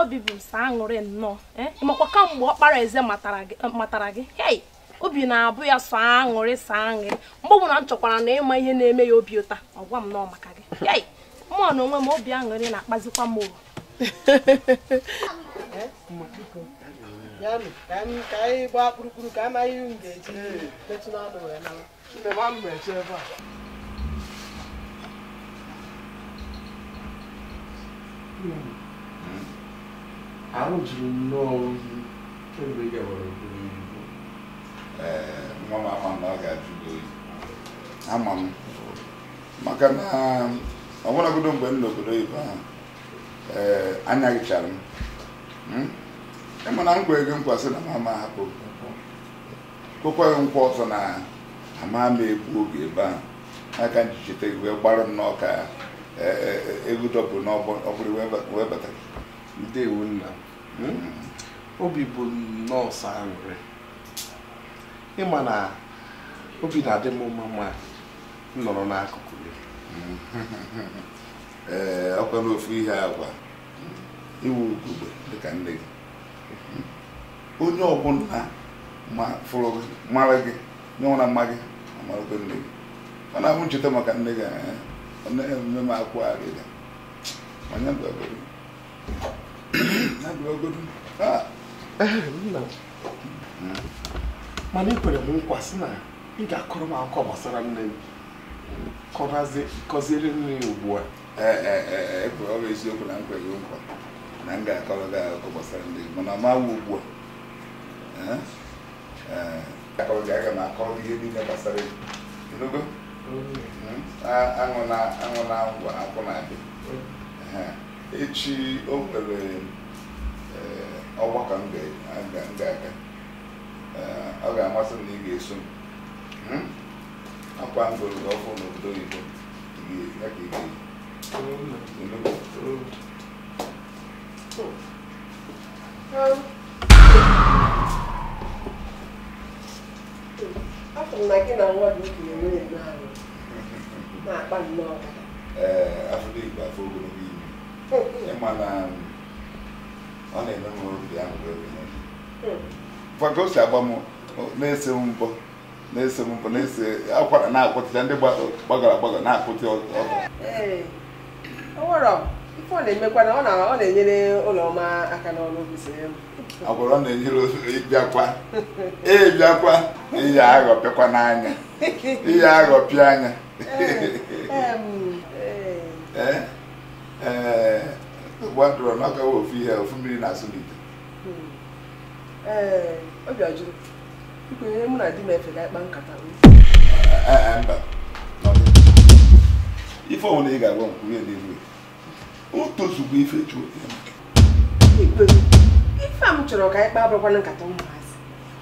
obi bụ sa aṅụrị nnọọ eh. makwa kamgbe ọkpara eze matara gị obi na-abụ ya sọ aṅụrị sa aṅụrị mgbe ọbụla m chọkwara na ịma ihe na-eme ya obi ụta ọgwa m nọọ maka gị mụọ na onwe m obi aṅụrị na-akpazikwa m oru eh? ya ka anyị ka amaghị hmm. hmm. eh, a ahụ juru nnọọ oyi kemgbe ị gawara obere ibu nwa m ama na ọ ga-ajụ gị oyi ama m maka na ọ mgbe m n'obodo ahụ m ịma na nkwa ego nkwa sị na mama hapụ kwekwaghị nkwa ọzọ na ama m ekwu oge ebe ahụ n'aka njichite wee gbarụ nnọọ ka e, e, e, egwu dọpụ n'ọbụrụ wee batara ndewo nna hmm. obi bụ nọọsụ sọ aṅụrị ịma na obi na-adị m mma ma m nọrọ n'akụkụ gị ee ọkwa n'ofu ihe agwa iwu ugogbe dịka nne gị onye ọbụla ma fụrụ gị mara gị nyenwara mma gị amarakwa nne gị ọ na-abụ ncheta maka nne gị nne ya emume m akwụ arịrị onye bịagodu ya bịagodu ah! eh, mana ekwere m nkwa sị na ị ga-akọrọ m akụkọ gbasara nne m kọziere nne ya ugbu a ekwere eh, eh, ọ bụ eziokwu na nkwa gị nkwa na m ga-akọrọ gị akụkọ gbasara nne m mana ọ ma ugbu a ga akọrọ ihe niile gbasara ego aṅụ na aṅụ na ngwa akwụ na-adị echi o nwere ọgbakọ m ga-aga ọ ga-amasị m na ị ga-eso m akwa ngoro goro ọkụ n'obodo oyibo ya ka ị ga-eyi afọ m na gị na nwa gị okenye nwere eme na-akpa nnọọ na ọ na-eme ahụ si agba m na-ese m mbọ na-ese m mbọ na-ese akwara na-akwụtịcha ndị gbagara agbagara na-akwụtị ọ na-emekwa na ọ na-enyere ụlọma aka n'ọrụ agbụrụ na-enyere ịbịakwa ịbịakwa ihe aghọpịakwa n'anya ihe aghọpịa anya ee n'ọkawa ofu ihe ofu mmiri na-asụ n'ite hmm. obi ọjụrụ mụ na efe ga-akpa nkata mba ife ị ga-agwa na-ewu utozugbo ife ife a m chọrọ ka anyị kpaa nkata ụmụazị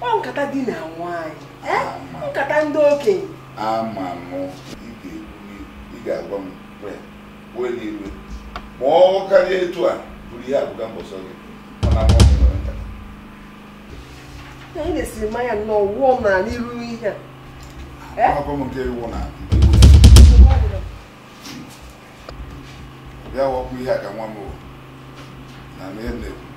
ọ nkata di na nwaanyị nkata ndị okenye ama m ga-agwa m iwe ma ọ karịa etu a bụrụ ihe abụga mbọsọ gị anyị na mmanya nnọọ ihe a bịa wakwu ihe a ka nwa m na na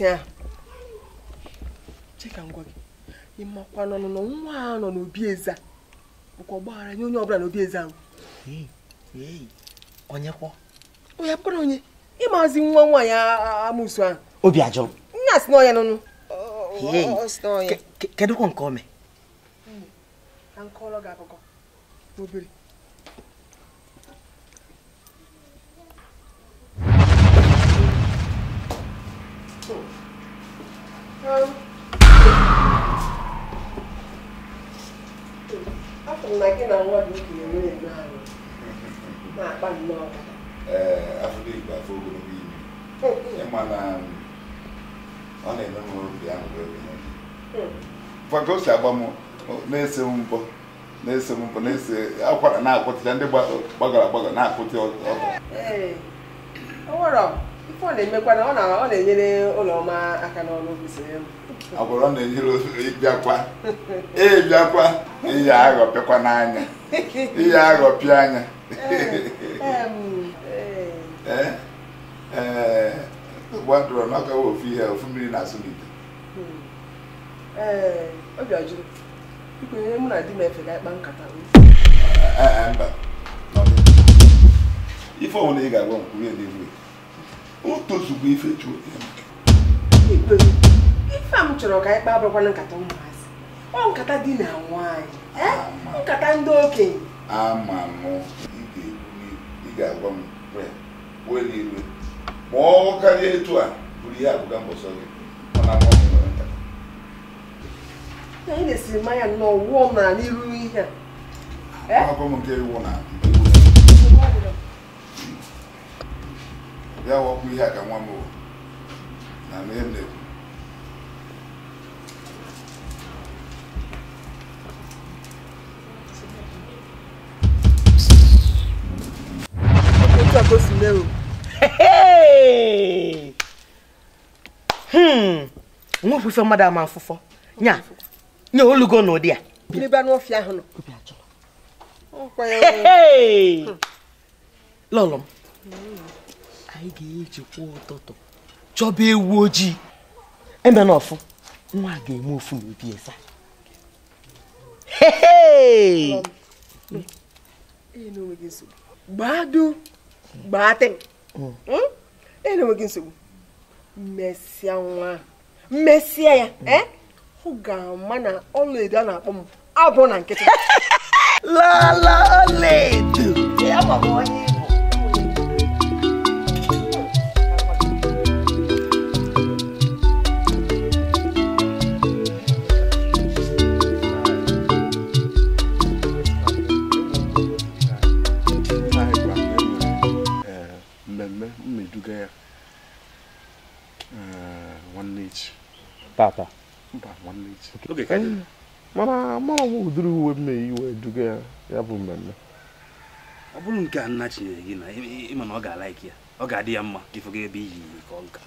nwaanyị ahụ cheka ngwa gị nọ n'ọnụnọ nwa nọ n'obi eze bụkwa ọgbaghara nye onye ọbụla n'obi oh, eze ahụ onye abụkwara onye ịmazi nwa nwaanyị amụsu ahụ obi ajọrọ nna si n'ọya n'ọnụ kedụkwa nke ome ka nkọrọ gị akụkọ obere afọ na gị na nwa gị okenye nwere eme ahụ na-akpa nnọọ afọ igbo afọ ogologo imi ịma na ọ na enwe m obi ahụ gwago si agba m na-ese mbọ na-ese m mbọ na-ese akwara na-akwụtịa ndị gbagara agbagara na-akwụtị ọkụ ife ọ na-emekwa na ọ na-enyere ọma aka n'ọrụ ọ na ịbịakwa ịbịakwa e ihe aghọpịakwa n'anya ihe aghọpịa anya ee eh, eh, gbadụrụ hmm. eh, na ofu ihe ofu mmiri na asụlite ọbịa ife ọbụla ị ga-agwa n'igwe o tozugbo ifechukwu ife a m chọrọ ka anyị kpaa na nkata ụmụazị ọ nkata di na nwaanyị eh? nkata ndị okenye ama m ị ga-agwa m were n'igwe ma ọ karịa etu a bụrụ ihe abụga mbọsọ gị mana m anyị na-esiri mmanya nnọọ wụọ m na n'iru ihe a bịa wakwu ihe a ka nwa m na ihe m na-ekwu ọkọ sì lérò. nwa ofufe mmadụ ama afụfọ nya nye olugo na ụdị a n'ebe anyị ga-eji kwa ụtụtụ chọba ewu ojii eme na ọfụ nwa ga-eme ofu n'obi esa gbado gbatị enweghị nsogbu mmesịa nwa mmesịa ya ọ ga-ama na ọlaedo a na-akpọ m abụ na nkịtị lala ọlaedo ya onye mmeduga uh, eh, ya nwanne echi tata mba nwanne echi mana mara ụdịrị uwe m na duga ya ya bụ mmemme ọ bụrụ nke a nna chinyere gị na ịma na ọ ga-alaiki ya ọ ga-adị ya mma ka ebe iyi ka ọ nka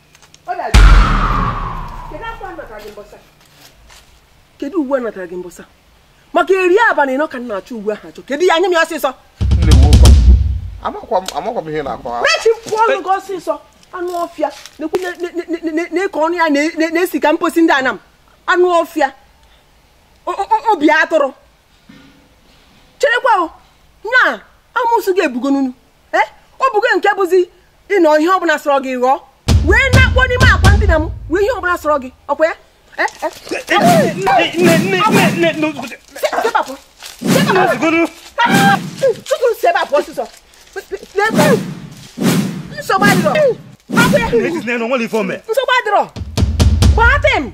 kedu uwe natara gị mbọsa maka eri abalị ka achọ uwe ahụ achọ kedu ya anya m ya ọsịsọ amakwa m ihe na-akwa rechi ọnụ gị ọsịsọ anụ ọfịa na-eke ọnụ ya na-esi ka mposi ndị anam anụ ọfịa obi atụrụ cherekwa nya amụsụ ga-ebugo n'unu nke bụzi ịnọ ihe ọbụla sọrọ gị ghọọ wee na-akpọ n'ime akwa m wee ihe nsogbu adịrọ m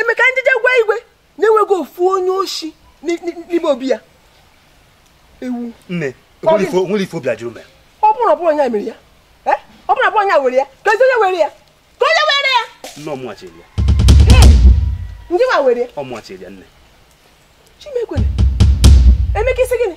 emeka njije gwa igwe na-enweghị ofu onye oshi n'ime ya ewu ọ bụrụ onye mere ya ọ bụrụ ọbụrụ onye were ya ka onye were ya ka onye were ya ndị ma were ya chimekwere emeka isi gịnị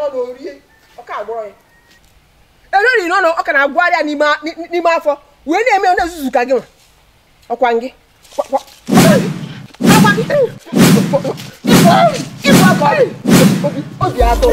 n'ọnụ orie ọka agbọrọ ya ereri ọ ka na n'ime afọ wee na-eme onye nzuzu ka gị nwa ọkwa gị obi atọ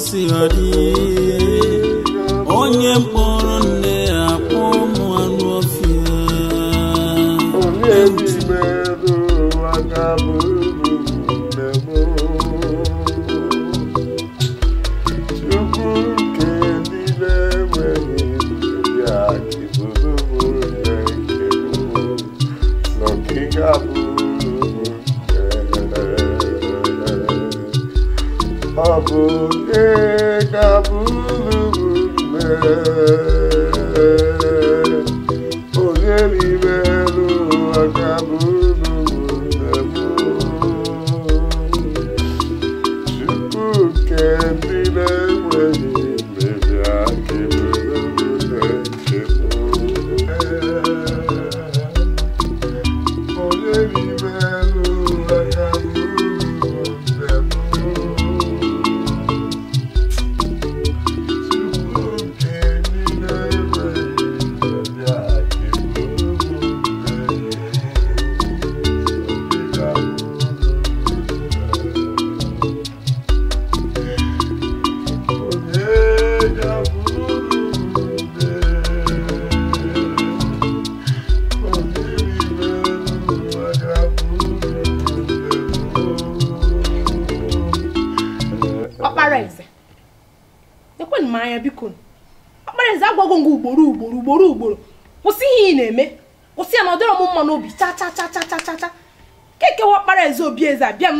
gosi ọdị onye mkpọ kabul bülmez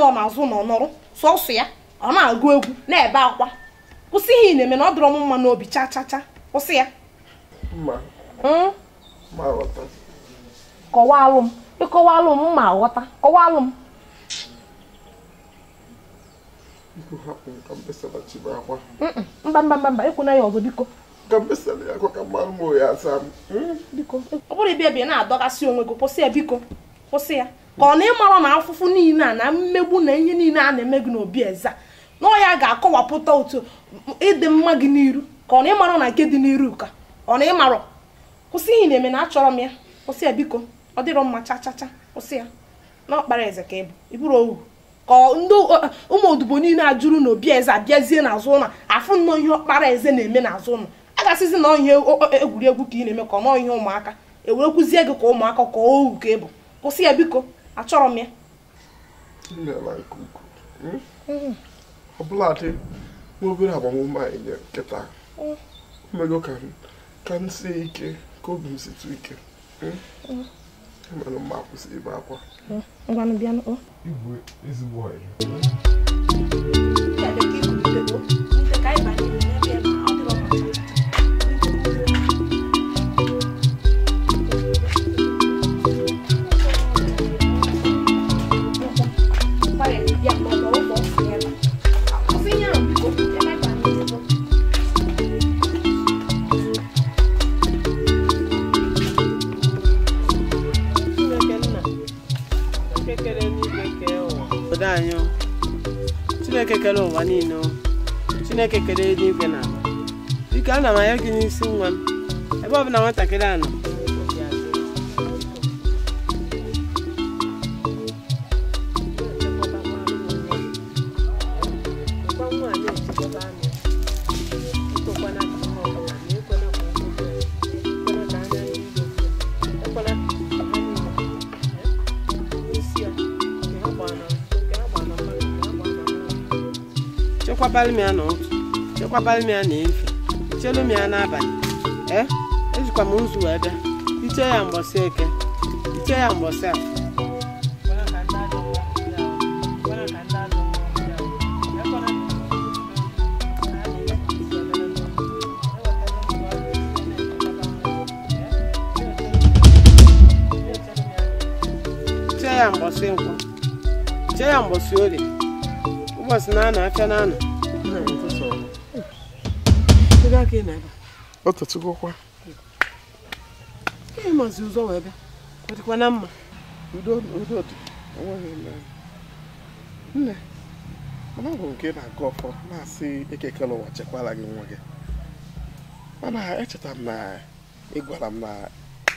na-azụ nọ nọrụ sọsọ ya ọ na-agụ egwu na-ebe akwa kwụsị ihe ị na-eme na ọ dịrọ m mma n'obi cha cha cha kwụsị ya hmm? kọwalụ m m ma ghọta m mba mba mba ya ọzọ biko hmm? ọ kwụsị ya ka ọ na ịmara na afụfụ niile a na mmegbu na ihe niile a na-eme gị n'obi eza na ọya ga-akọwapụta otu ịdị mma gị n'iru ka ọ na ịmara na nke dị n'iru ka ọ na ịmara kwụsị ihe na-eme na achọrọ m ya kwụsị ya biko ọ dịrọ mma chachacha kwụsị ya na ọkpara eze ka ịbụ ịbụrụ ohu ka ndị ụmụ odibo niile a jụrụ na obi eze abịazie n'azụ ụlọ afụ nnọọ ihe ọkpara eze na-eme n'azụ ụlọ a gasịzi na ihe egwuregwu ka ị na-eme ka ọ nọọ ihe ụmụaka ewerekwuzie gị ka ụmụaka ka ohu ka ịbụ kwụsị ya biko achọrọ m ya hmm? ọbụladị obere agbamume anyị nye nkịta hmm. omego ka m sie ike ka obi m ike mana hmm? e mma akwụsị ibe akwa igwe ezigbo ọhịa chineke kere ụwa niile chineke kere eluigwe na biko na m anya gị n'isi nwa m ebe ọbụla nwatakịrị a nọ chekwabalụ m n'ụtụ chekwabalụ m ya chelu m n'abalị ee eh, ejikwa m nzu wee bịa iche ya mgbọsị eke iche ya mgbọsị a chee ya mgbọsị nkwụ chee ya mgbọsị orie ụbọchị na afịa na-anọ ọ tụtụgokwa ihe mazi ụzọ wee bịa ọ na mma udo udo dị enweghị nne nne mana ọ bụrụ nke na-agụ ọfọ na-asị ekekele ụwa chekwala gị nwa gị mana echetara m na ị gwara m na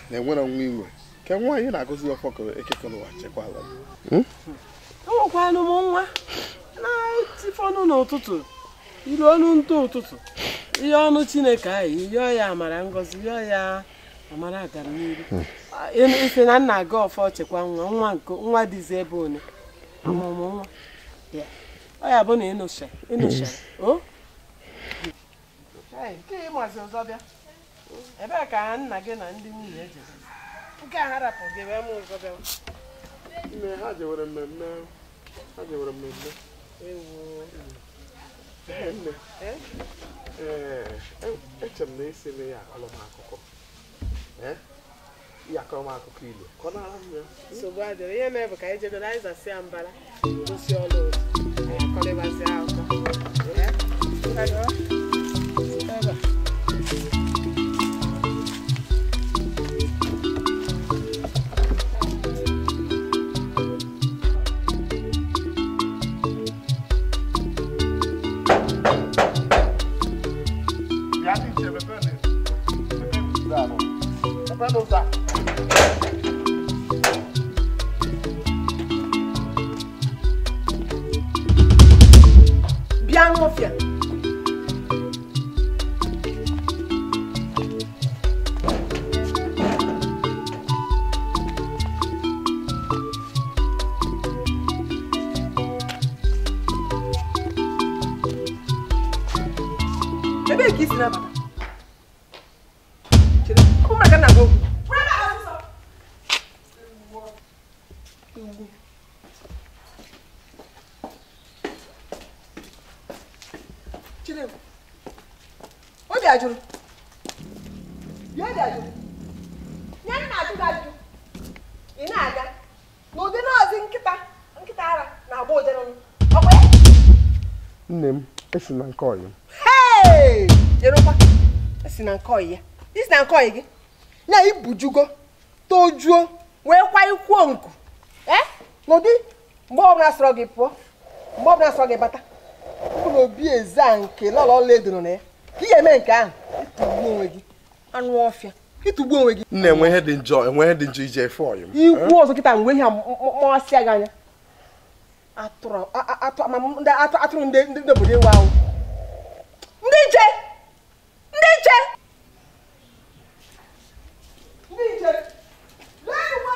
na-enwere nwa inwe ka nwaanyị na-agụzi ọfọ ka ekekele ụwa chekwala m hmm? enwekwanụ m nwa na-etifọnụ n'ụtụtụ iru ọnụ ntụ ụtụtụ ihe ọnụ chineke anyị yọọ ya amara ngozi yọọ ya amara agamnihu hmm. ise na nna gị ọfọ chekwa nwa nwa nke nwa dịzi ebe one amụmụ nwa ọ ya bụ na ịnụchara o nke ịmazi ọzọ bịa ebee ka nna gị na ndị nwunye e jere nke a harapụ gị ebe m ọzọ bịa ha jewere mmemme ha jewere mmemme Eh? Eh, eh, eche m na esila ya akọrọmakụkọ ya akụkọ ilu ka ọ na-ara m ya nsogbu adịrị ihe mere bụ ka anyị na anyị zasịa mbara gosi ọlụ anyị akọrịbazị akụkọ não dá. esi na nke ọyị hei jerokwa esi na nke ọyị ya isi na nke ọyị gị ya ibujugo tojuo wee kwa ikwuo nku ee n'ụdị mgbe ọbụla sọrọ gị pụọ mgbe ọbụla sọrọ gị bata mkpụrụ obi eza nke lọlọ ọla edoro na ya ka ị ga-eme nke ahụ ịtụgbuo onwe gị anụ ọfịa ịtụgbuo onwe gị nna enwe ihe dị njọ enwe ihe dị njọ ije efe ọyị m ikwu ọzọ kịta mgbe ihe a mmasị ya gị anya atụrụ atụrụ ndị ndị obodo ewu ahụ ndị nche ndị nche ndị nche lee uwe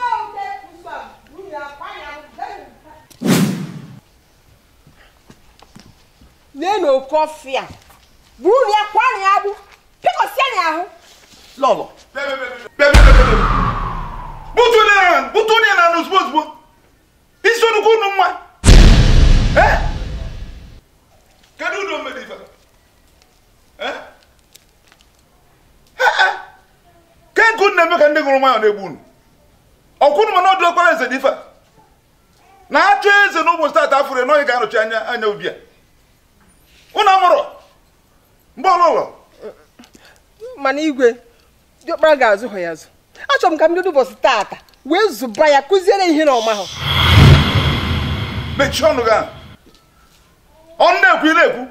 ahụ nke nsọ nwunye akpa ya lee na oke ọfịa buru ya kwa na ya bụ pịkọsịa na ahụ lọlọ bụtụ na ya bụtụ na ya na ozugbo ozugbo isi onugbu unu nwa kedu udo mmeri ife na-eme ka ndị gụrụ nwayọ na-egbu unu eze dị na eze n'ụbọchị e ga-arụchi anya anya ubi a unu amụrụ mgbe ụlọ mana igwe diọkpara ga-azụ ya azụ achọrọ m ka m bido ụbọchị tata wee zụba ya kụziere ihe na ọma mechie ọnụ gị ọ na-ekwu na-ekwu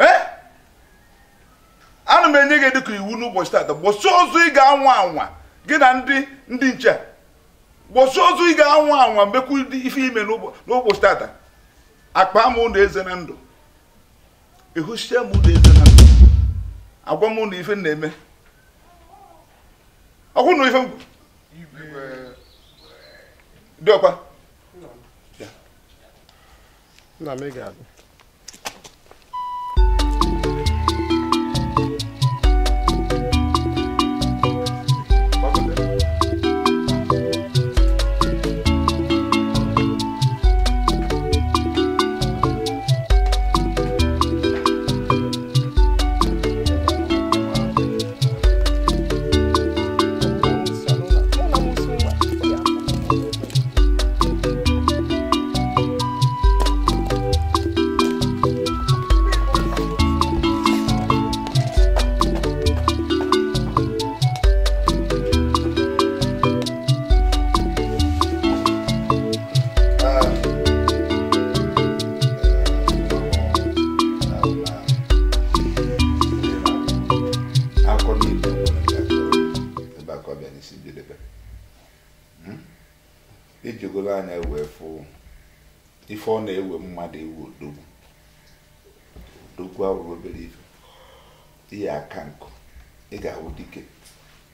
ee eh? ana m enye gị dịka iwu n'ụbọchị tata gbosi ozu ị ga-anwa anwa gị na ndị ndị nche gbosi ozu ị ga-anwa anwa mekwu ife ime n'ụbọchị tata akpa m ụlọ eze na ndụ ehuchie m ụlọ eze na ndụ agwa m na ife na-eme ọkwụ na ife dị ọkwa não obrigado. a na-ewefu ewe ife ọ na-ewe mmadụ ewu odogwu odogwu awụrụ obere ife ihe aka nkụ ị ga-ahụ dike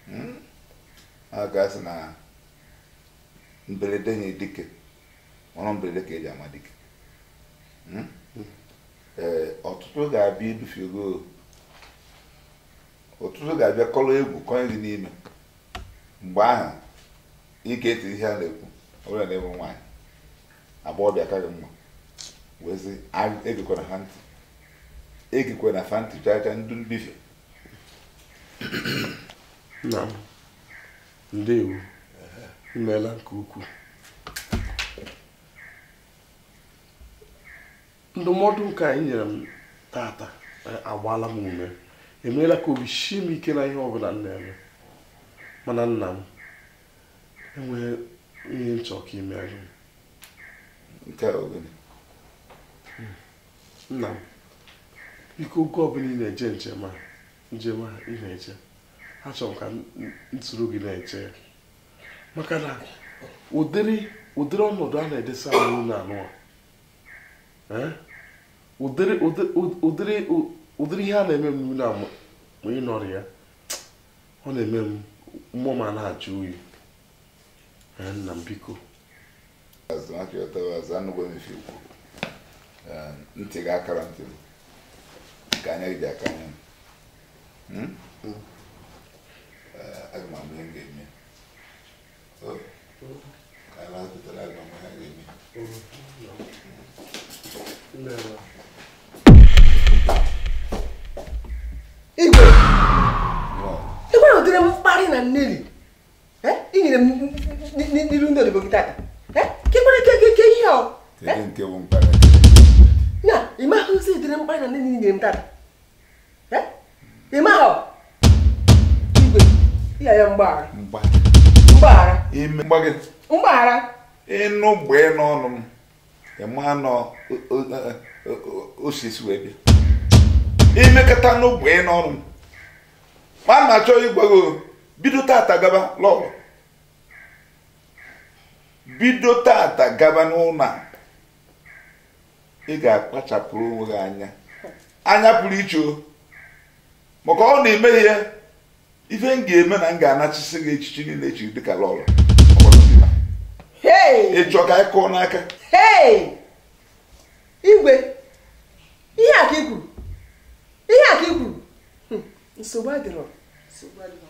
hmm? a ga-asị na mberede nye dike ọrụ mberede ka eji ama dike hmm? ọtụtụ ga-abịa idufigo ọtụtụ ga-abịa kọrọ egwu kọnye gị n'ime mgbe ahụ ị ga-eti ihe a na-ekwu ọbụla na ịbụ nwaanyị agbọghọbịa karị mma wezi egikwana ha ntị egikwana fa ntị chacha ndụ mbife nna m ndewo imeela nke ukwuu ndụmọdụ nke anyị nyere m tata e, agbaala m ume emeela ka obi shie m ike na ihe ọbụla m na-eme mana nna m enwee ihe m chọrọ ka ị nke a ogene nna m biko oge ọbụla ị na-eje njem a njem a ị na-eje achọrọ m ka m soro gị na-eche maka na ụdịrị ụdịrị ọnọdụ a na-edesa ahụ na anụ ụdịrị ụdịrị ihe a na-eme m na mgbe ị nọrọ ya ọ na-eme m mmụọ ma na-ajụ oyi nna m biko ehm, ntị ga akara ntị nke anya ji aka anya m hmm? eh, ihe ga-eme oh, ka igwe na ụdịrị mkparị na mmiri inyere m n'ilu ndị odibo gị gị, kekwara ihe ọ na ịmaghị ozi edere mkparị na nne na inyere m tata ịmaghị igwe ya ya mgbaghara mgbaghara mgbaghara ịnụ gbee n'ọnụ m ịma nọ osisi wee bịa imekọta n'ogbe n'ọnụ m ma na-achọ ịgwa gị bido tata gaba l'ọrụ bido tata gaba n'ụlọ a ị ga-akpachapụrụ onwe gị anya anya pụrụ iche o maka ọ na-eme ihe ife m ga-eme na m ga-anachisi gị echichi niile echiri dịka lọrụ ịchọ ka ịkụọ n'aka igwe ihe aka ka kwuru ihe aka ka kwuru hm, nsogbu adịrọ nsogbu adịrọ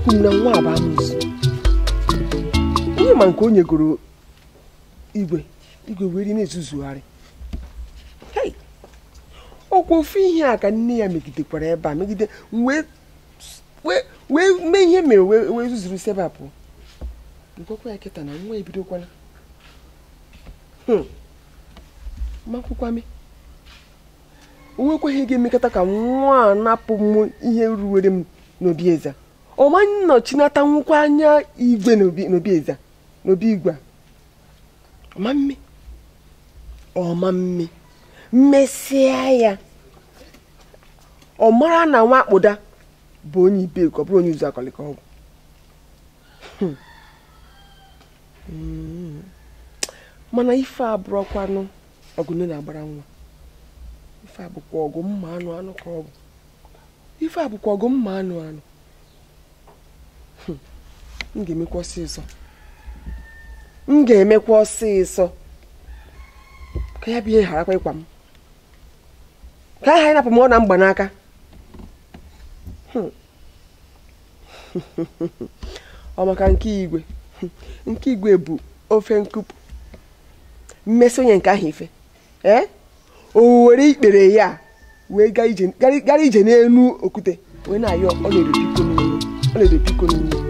ekwu na nwa abụ amụzi onye ma nke o nyegoro igwe igwe weri na-ezuzugharị ọkwa ofu ihe a ka nne ya megidekwara ebe a megide wee mee ihe mere wee zuzuru sebapụ pụ ya kịta na nwa ebidokwana hmm. makwụkwame o nwekwaghị ga-emekọta ka nwa a napụ m ihe ruwere m n'obi eze ọmanye nnọchinata nwụkwa anya igwe n'obi a n'obi igwe ọmamme ọmamme mmesịa ya ọ mara na nwa akpụda bụ onye ibe ka ọ bụrụ onye ụzọ ka ọgwụ hmm. hmm. mana ife abụrọkwanụ ọgụ nne na-agbara nwa ife abụkwa ọgụ mma anụ anụ ka ọgwụ ife abụkwa ọgụ mma anụ anụ m ga-emekwa ọsịsọ emekwa ọsịsọ ka ya bụ ihe gharakwa ịkwa m ka aha ịnapụ m ọ na mgbanaka hmm. ọ maka nke igwe nke igwe bụ ofe nkupu mmesi onye nke ahụ ife eh? o were ikpere ya wee gara ije n'elu okwute wee na-ayọ ọ na-edo iko n'ime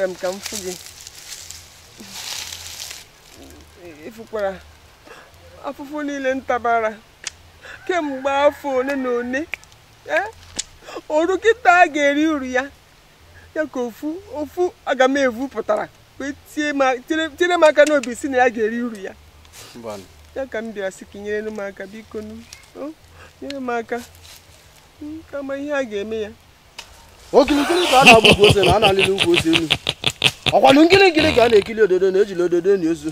chere m ka m fụ gị ịfụkwara afụfụ niile ntabara kemgbe afọ ole na ole e, oru kịta a ga-eri uru ya ya ka ofu ofu aga m evu pụtara tinyere m aka n'obi si na ya ga-eri uru ya ya ka m bịara sị ka nyere m aka biko nyere m aka kama ihe a ga-eme ya ogirigiri ka a na-agbụgị ose na a na-alịla ukwu ose elu ọkwanụ nkiri nkiri ka a na-ekiri ododo na ejili ododo na ozu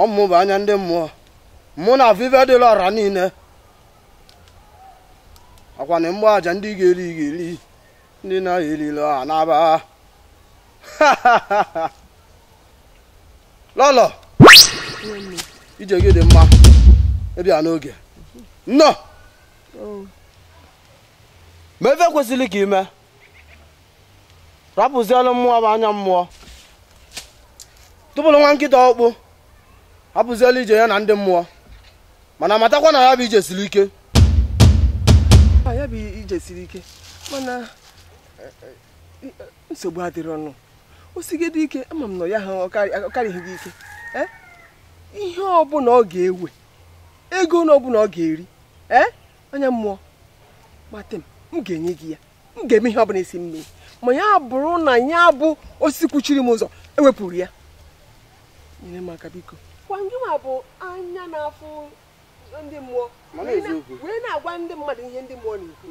ọmụ bụ anya ndị mmụọ mụ na afọ dịla ọra niile ọkwanụ mgbọ aja ndị ga-eri ga-eri ndị na-ahịa erila ọha n'aba lọlọ ije gị dị mma ịbịa n'oge nnọọ oh. ma efe kwesịrị ka ime rapụzielụ mmụọ bụ anya mmụọ tụpụrụ nwa nkịta ọkpụ hapụzielụ ije ya na ndị mmụọ mana matakwa na ya bụ ije siri ike ah, ya bụ ije siri ike mana eh, eh, nsogbu adịrị ọnụ osigide ike ama m na ya ha ọkarịghị gị ike eh, ihe ọbụla ọ ga-ewe ego ọbụla ọ ga-eri anya mmụọ mate m m ga-enye gị ya m ga-eme ihe ọbụla isi mmiri ma ya bụrụ na ya bụ osisi kwuchiri m ụzọ ewepụrụ ya nyere m aka biko bụ anya na-afụ ndị mmụọ wee na-agwa ndị mmadụ ihe ndị mmụọ na-ekwu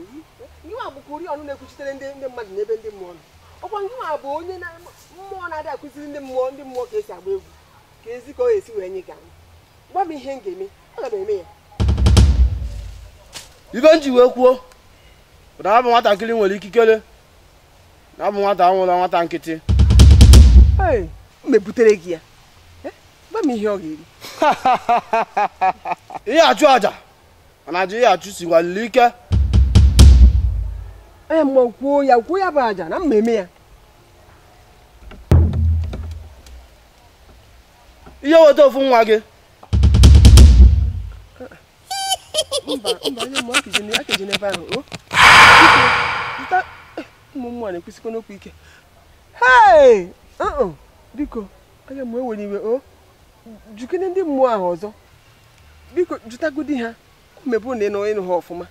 gịnwa kwuri ọnụ na-ekwuchitere ndị n'ebe ndị mmụọ nọ ọkwa ngịnwa bụ onye mmụọ na adị akụziri ndị mmụọ ndị mmụọ ka esi agba egwu ka ezi esi wee gwa m ihe ibe m ji wee kwuo nwatakịrị nwere ikikere na bụ nwata anwụla nwata nkịtị mebutere gị ya gba m ihe ọ ga-eri ihe achụ aja mana aja ihe achụ si gwalili ike ee mgbe kwuo ya kwuo ya bụ aja na mmemme ya ihe weta ofu nwa gị mba mba onye ebe ahụ ụmụ m nwanyị kwesịkwana okwu ike hei uh-uh. biko aga m ewere iwe o oh. jukene ndị mmụọ ahụ ọzọ biko jụtagodi ha mebu na ịnụ ha ọfụma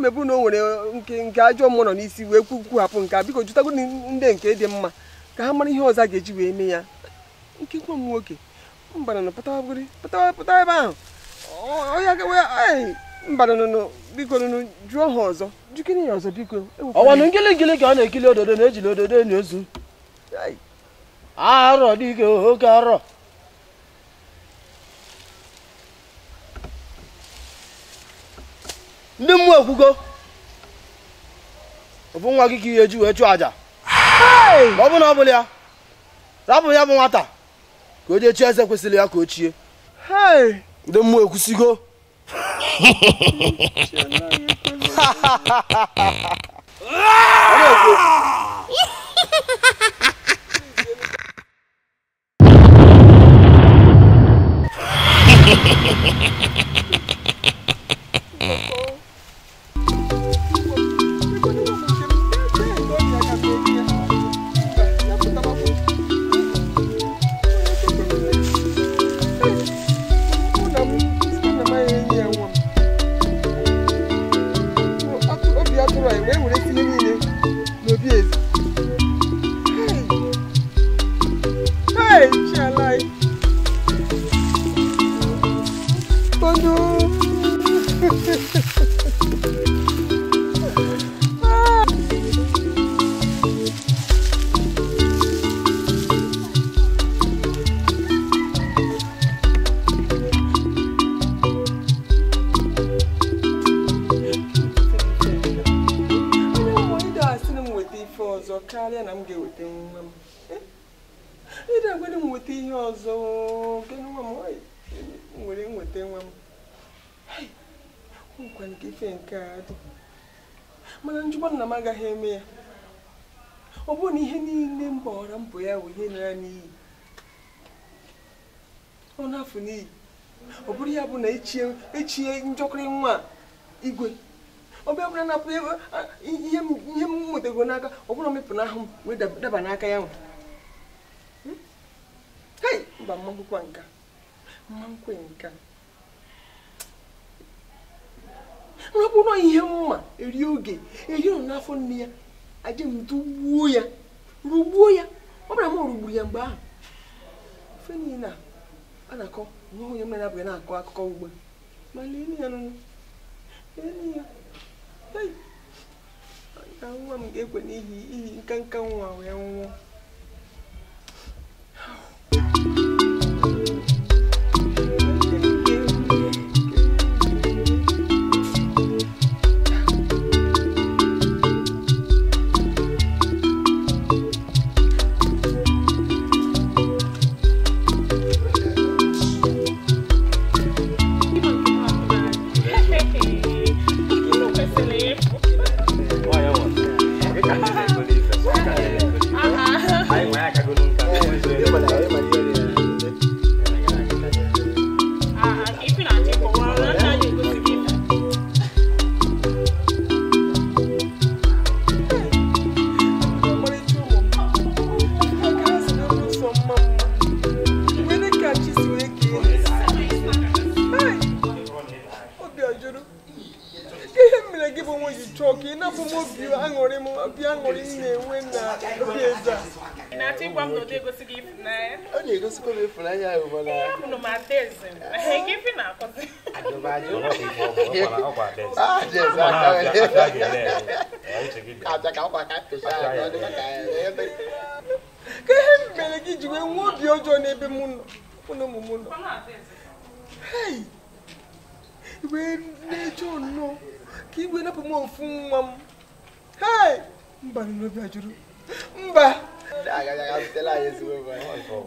mebu na o nwere nke nke ajọ mmụọ nọ n'isi wee kwuhapụ nke a biko jụtagodi ndị nke dị mma ka ha mara ihe ọzọ a ga-eji wee mee ya nke nwa m nwoke mbananụ pụtawa pụtawa ebe ahụ onye agawe mbara biko nụnụ jụọ ha ọzọ jikini ya ọzọ biko e ọwanụ ngịlịngịlị ka ọ na-ekili ododo na-ejili ododo enyi ozu arọ dike oke arọ ndị mmụọ ekwugo ọbụ nwa gị ka ihe eji wee chụọ aja ọ bụ na ọ bụla ya rapụ ya bụ nwata ka o jee chie eze kwesịrị ya ka o chie ndị mmụọ ekwusigo Ha ha ha ha ha! karịa na m ga-eweta nwa m eh? ịda gwere m nweta ihe ọzọ nke nwa m nwere nweta nwa m nkwa nke ife nke a dị mana njikwa nna m agaghị eme ya ọ bụrụ na ihe niile m gbawara mbọ ya wụ ihe nara n'iyi ọ na-afụ n'iyi ọ bụrụ ya bụ na echie e njọkịrị nwa igwe ọbịa na-apụ ah, ihe m mụtago n'aka ọ bụla na ahụ wee daba n'aka ya nwe hmm? hei mba mmankwụkwa nka mmankwụ nka nrapụrụ ihe mma eri oge eri nọ n'afọ nne ya aje m ya rugbuo ya ọ bụla rugburu ya mgbe ahụ ofe niile a na-akọ nwa onye na-akọ akụkọ ugbu ma lee ya nụnụ lee ya ka nwa m ga-ekwe n'ihi ihi nkanka nwa wee nwụọ Siko le funa ya yo bona. No ma tese. Ke fina ko. Ajoba ajoba ke bo ko kwa tese. Ah, yes, I can. I can. Ka ka kwa ka tese. Ke mbele ki jiwe nwo bi ojo na ebe mu no. Kuno mu mu no. Hey. Iwe ne jo no. Ki iwe na po mo fun wa. Hey. Mba ni no bi ajuru. Mba. Tela não we ba.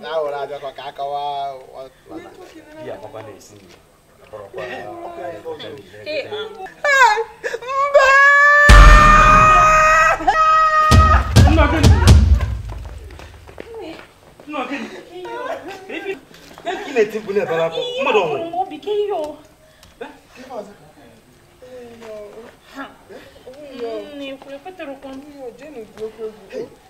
Na ora jo ko ka não wa wa na. a papa le si. Ọ̀pọ̀lọpọ̀ ọ̀pọ̀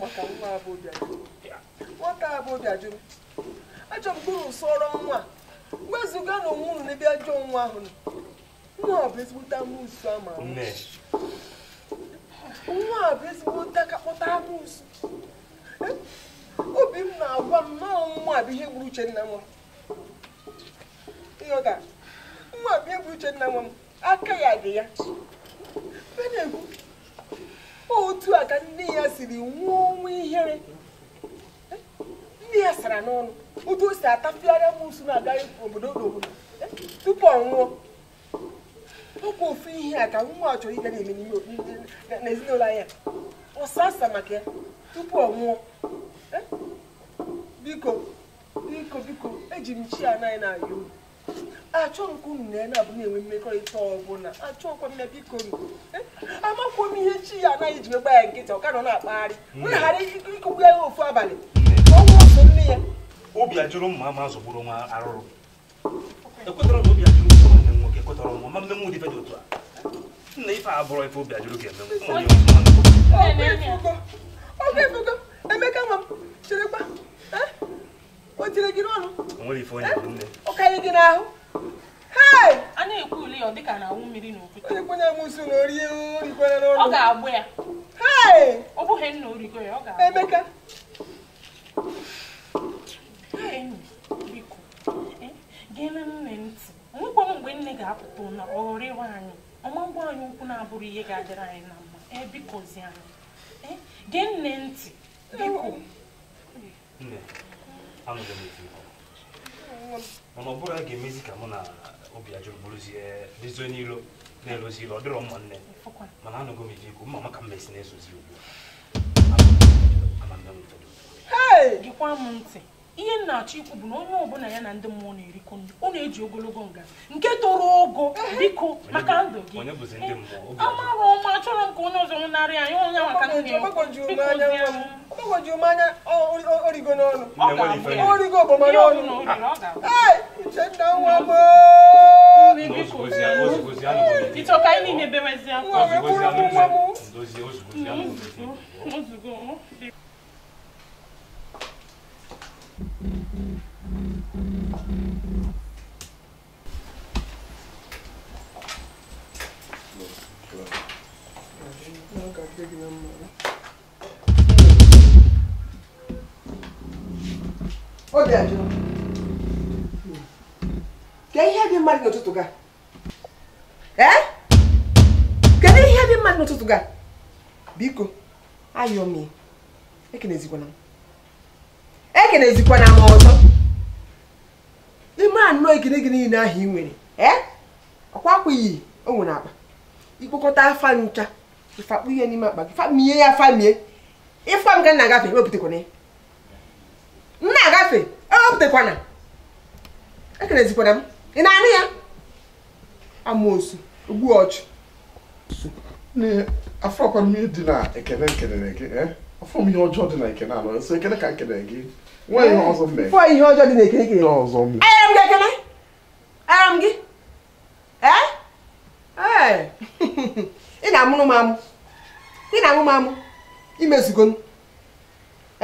maka nwa abụbịa nwata abụbịa jụrụ ajọ mkpụrụ sọrọ nwa wezụga na onwe unu n'ebe ajọ nwa ahụ nwa ọ bụ ezigbote amụsụ ama nwa a bụ ezigbote akakpọta amụsụ e, obi m na-agwa m na nwa bụ ihe gburu Uchenna nwa nwa bụ ihe gburu Uchenna nwa m aka ya dị ya otu a ka nne ya siri nwụọ ọnwụ ihere ndị ya sara n'ọnụ otu o si atafiara m na-agaghị obodo n'obodo tupu ọ nwụọ ọkwa ofu ihe a ka nwa a chọrọ ịga na-eme n'ezinụlọ anya ọsasa maka ya tupu ọ nwụọ biko biko biko eji m chi anaghị na-ayọ achọ nke unu na ya na-abụ na-enwe mmekọrịta ọbụla achọkwa m ya biko eh? amakwa m ihe chi ya anaghị ji megba ya nkịta ọka nọ na-akpagharị wee hmm. ghara ikụkwu ya ofu abalị hmm. ọnwụ otu nne ya obi ajụrụ mma ama zọgburu nwa arụrụ ekwetara m obi ajụrụ ụzọ nwanne m nwoke ekwetara nwa ma mmenwu dị otu a nna ife abụrọ ife obi ajụrụ ga-eme ọ ga-efugo emeka ma m cherekwa eh? o gị n'ọnụ ụka gị n'ahụ a na-ekwu ule ya ọ dịka na anwụ mmiri n'okwute onye m nso na orie orikwere n'ọnụ ọ ga-agbụ ya ọ bụghị nna origo ya ọ ga-agbụ Emeka biko gere nne ntị nwekwa mgbe nne ga-apụta na ọ anyị ọma mgbọ anyị ukwu na-abụrụ ihe ga-adịrị anyị na mma ebikozi anyị gee nne ntị biko mana ọ bụrụ a ga-emezi ka mụ na obi ajụrụ bụrụzie dezo n'ilo na-elozi ilo ọ dịrọ mma nne mana anọgo m efe ikwu mma maka mmesi na ezozi ugbu a ihe m na-achọ ikwu bụ na onye ọbụla ya na ndị mmụọ na-erikọ ndụ ọ na-eji ogologo nga nke toro ogo biko maka ndụ gị amarọ ọma achọrọ m ka onye ọzọ narị anyị onye maka origo n'ọnụ origo ogbomọnụ Ô, é que é bem mais no outro É? Quem é bem é o no outro lugar? Biko, aí, homem. É que nem zigo, não. ekenezikwana m ọzọ ime anọ ekene gị niile ahụ ị nwere e? ọkwakwaghị o nwere akpa ikpokọta afa ncha ịfakpụ ihe n'ime akpa gị famie ya famie ịfa m ga na-agafe ewepụtakwana ya nna agafe ewepụtakwana ekenezikwana e m ị na-anụ ya amoosu ogbu ọchụ afọkwa m ihe dị na ekene nkelere gị e? afọ m ihe ọjọọ dị na ekene anọ so ekene ka nkelere gị fọ ihe eh, ọzọ ihe ọjọọ dị na ekirikiri enyere m gị ekele enyere m gị ee eh? eh. ị na-amụrụ m amụ ị na-amụ m amụ imezugo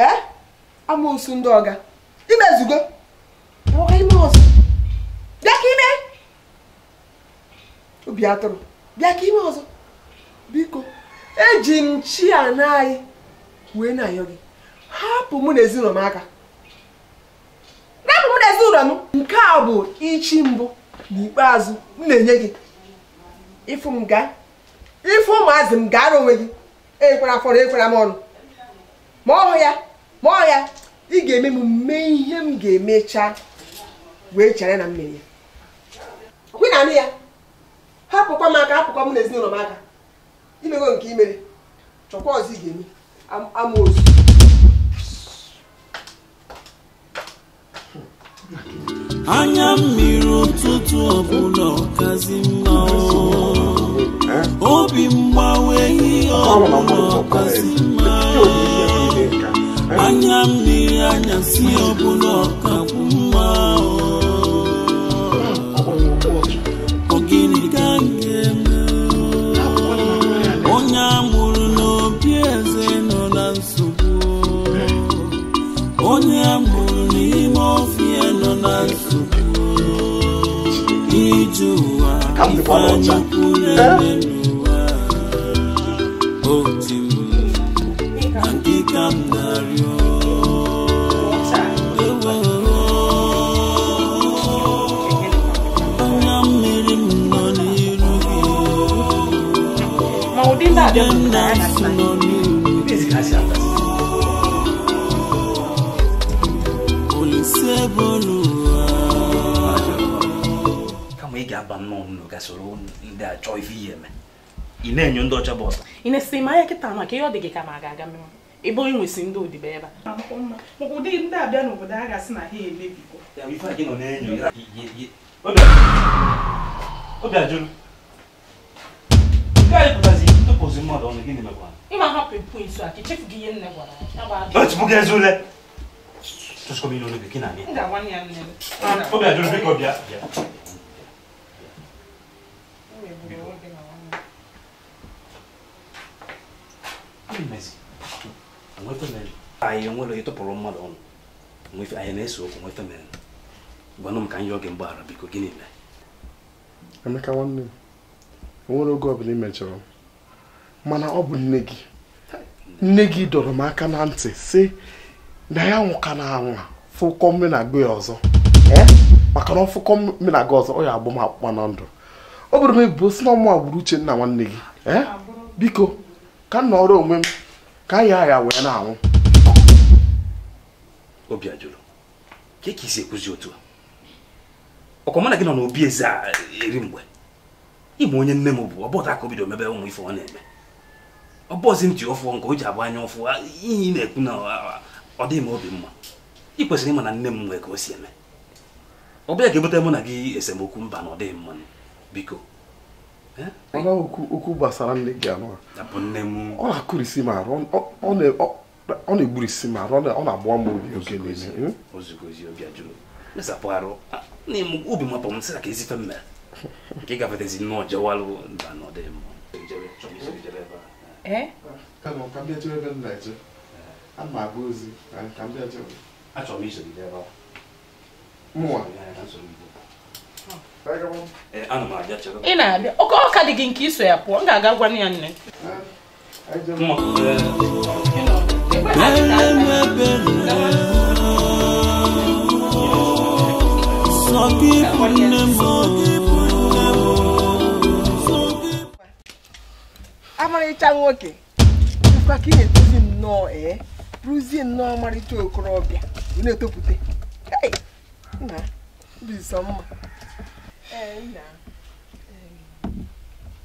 ee amoosu ndị ọga imezugo ọga ime ọzọ bịa ka ime obi atụrụ bịa ka ime ọzọ biko eji m chi ana anyị wee na-ayọ gị hapụ mụ na ezinụlọ m aka m nke a bụ ichi mbụ n'ikpeazụ m na-enye gị ifu m gaa ife ụmụazị m gaara onwe gị ekwere afọrọ ekwera m ọnụ ma ọhụ ya ma ọ ya ị ga-eme m mee ihe m ga-emecha wee chere na mmiri ya kwe na anụ ya hapụkwa m aka hapụkwa m na ezinụlọ m aka imego nke imere chọkwa ọzọ ị ga-eme amaozu anya mmiri ụtụtụ ọbụla ọkazi mma obi mgbawa ihe ọbụla ọkazi mma anya mmiri anyasị ọbụla ọkabụ mma Come before Lord, sir. Mau di tak ada nnụnụ gasịrị ndị ife ihe eme ị na-enyo ndị ọcha bụ ị na-esi ma ya kịta maka ihe ọ dị gị ka ma ga-aga menwe ebe onye nwesị ndị odibo ebe a ụdị ndị abịa n'obodo a gasị na ha emebigo obi gị ule na obi ajụrụ biko bịa bịa anyị nwere onye mmadụ ọnụ anyị na-ese okwu nweta mere gwanụ m ka anyị oge mgbaghara biko gịnị mere emeka nwanne m enwere oge ọbụla imejọrọ mana ọ bụ nne gị nne gị dọrọ m aka na ntị si na ya nwụka na anwa fụkọ eh? na ọzọ maka na ọfụkọ mme ọzọ ya agbụ m akpụkpa na ndụ ọ bụrụ m ebubo si na ọmụ agbụrụ uche nwanne gị biko ka m onwe m ka ya ya wee na-anwụ obi ajụrụ ka ka isi ekwuzi otu a ọkọmana gị nọ n'obi eze a eri mgbe ịma onye nne m bụ ọbọta ka o bido mebe ụmụ ife ọ na-eme ọbọzi ji ọfụ nke o ji abụ anya ụfụ ihe ị na-ekwu na ọ dịghị m obi mma ị kwesịrị ịma na nne m nwee ka o si eme ọ bịa ga-ebute mụ na gị esemokwu mba na ọ dịghị mma biko mana okwu gbasara nne gị anụ ọ na-akụrisi ma ọ na-egburisi ma ọ na-agba m obi oge niile obi mapụ m sịra ka ezife ebe Eh, ị na-abịa oke ọka dị gị nke iso ya pụọ m ga-aga gwa ya nne amarịcha nwoke dịkwa ka ị na-etozi nnọọ ee eh, bụrụzie nnọọ ọmarịcha okorobịa na-etopụta nna mma ee nna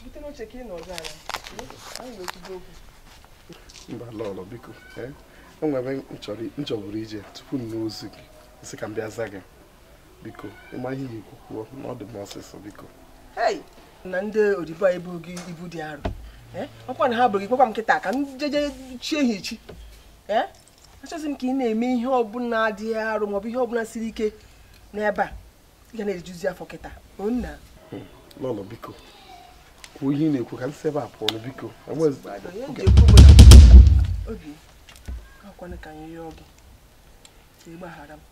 bute n'oche ka ị nọ ọzọ anyị ga-ekwudo okwu mba lọlọ biko o nwere nchọburu ije tupu m n'ozu gị sị ka m bịa za gị biko ịma ihe na ikwu kwuo na ọ dị m ọsịsọ biko na ndị odibo anyị bụ ibu dị arọ ọkwa na ha bụrụ gị kpọkwa m kịta ka m jeje chie ha echi achọzi m ka ị na-eme ihe ọbụla dị arụ maọbụ ihe ọbụla siri ike n'ebe a ị ga na-ejuzi afọ kịta nna lọlọ hmm. biko kwuo ihe ị na-ekwu ka nsị ebe a pụọ biko obi akwana ka anyị rịọ gị ịgbaghara m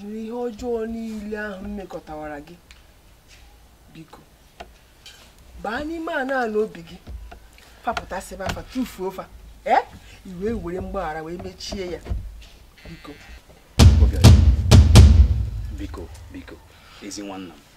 jiri ihe ọjọọ niile ahụ mmekọtawara gị biko baa n'ime a naanị obi gị fapụtasịba afa tufuo fa ee eh? iwe were mgbaghara wee mechie ya biko biko biko ezi nwanna m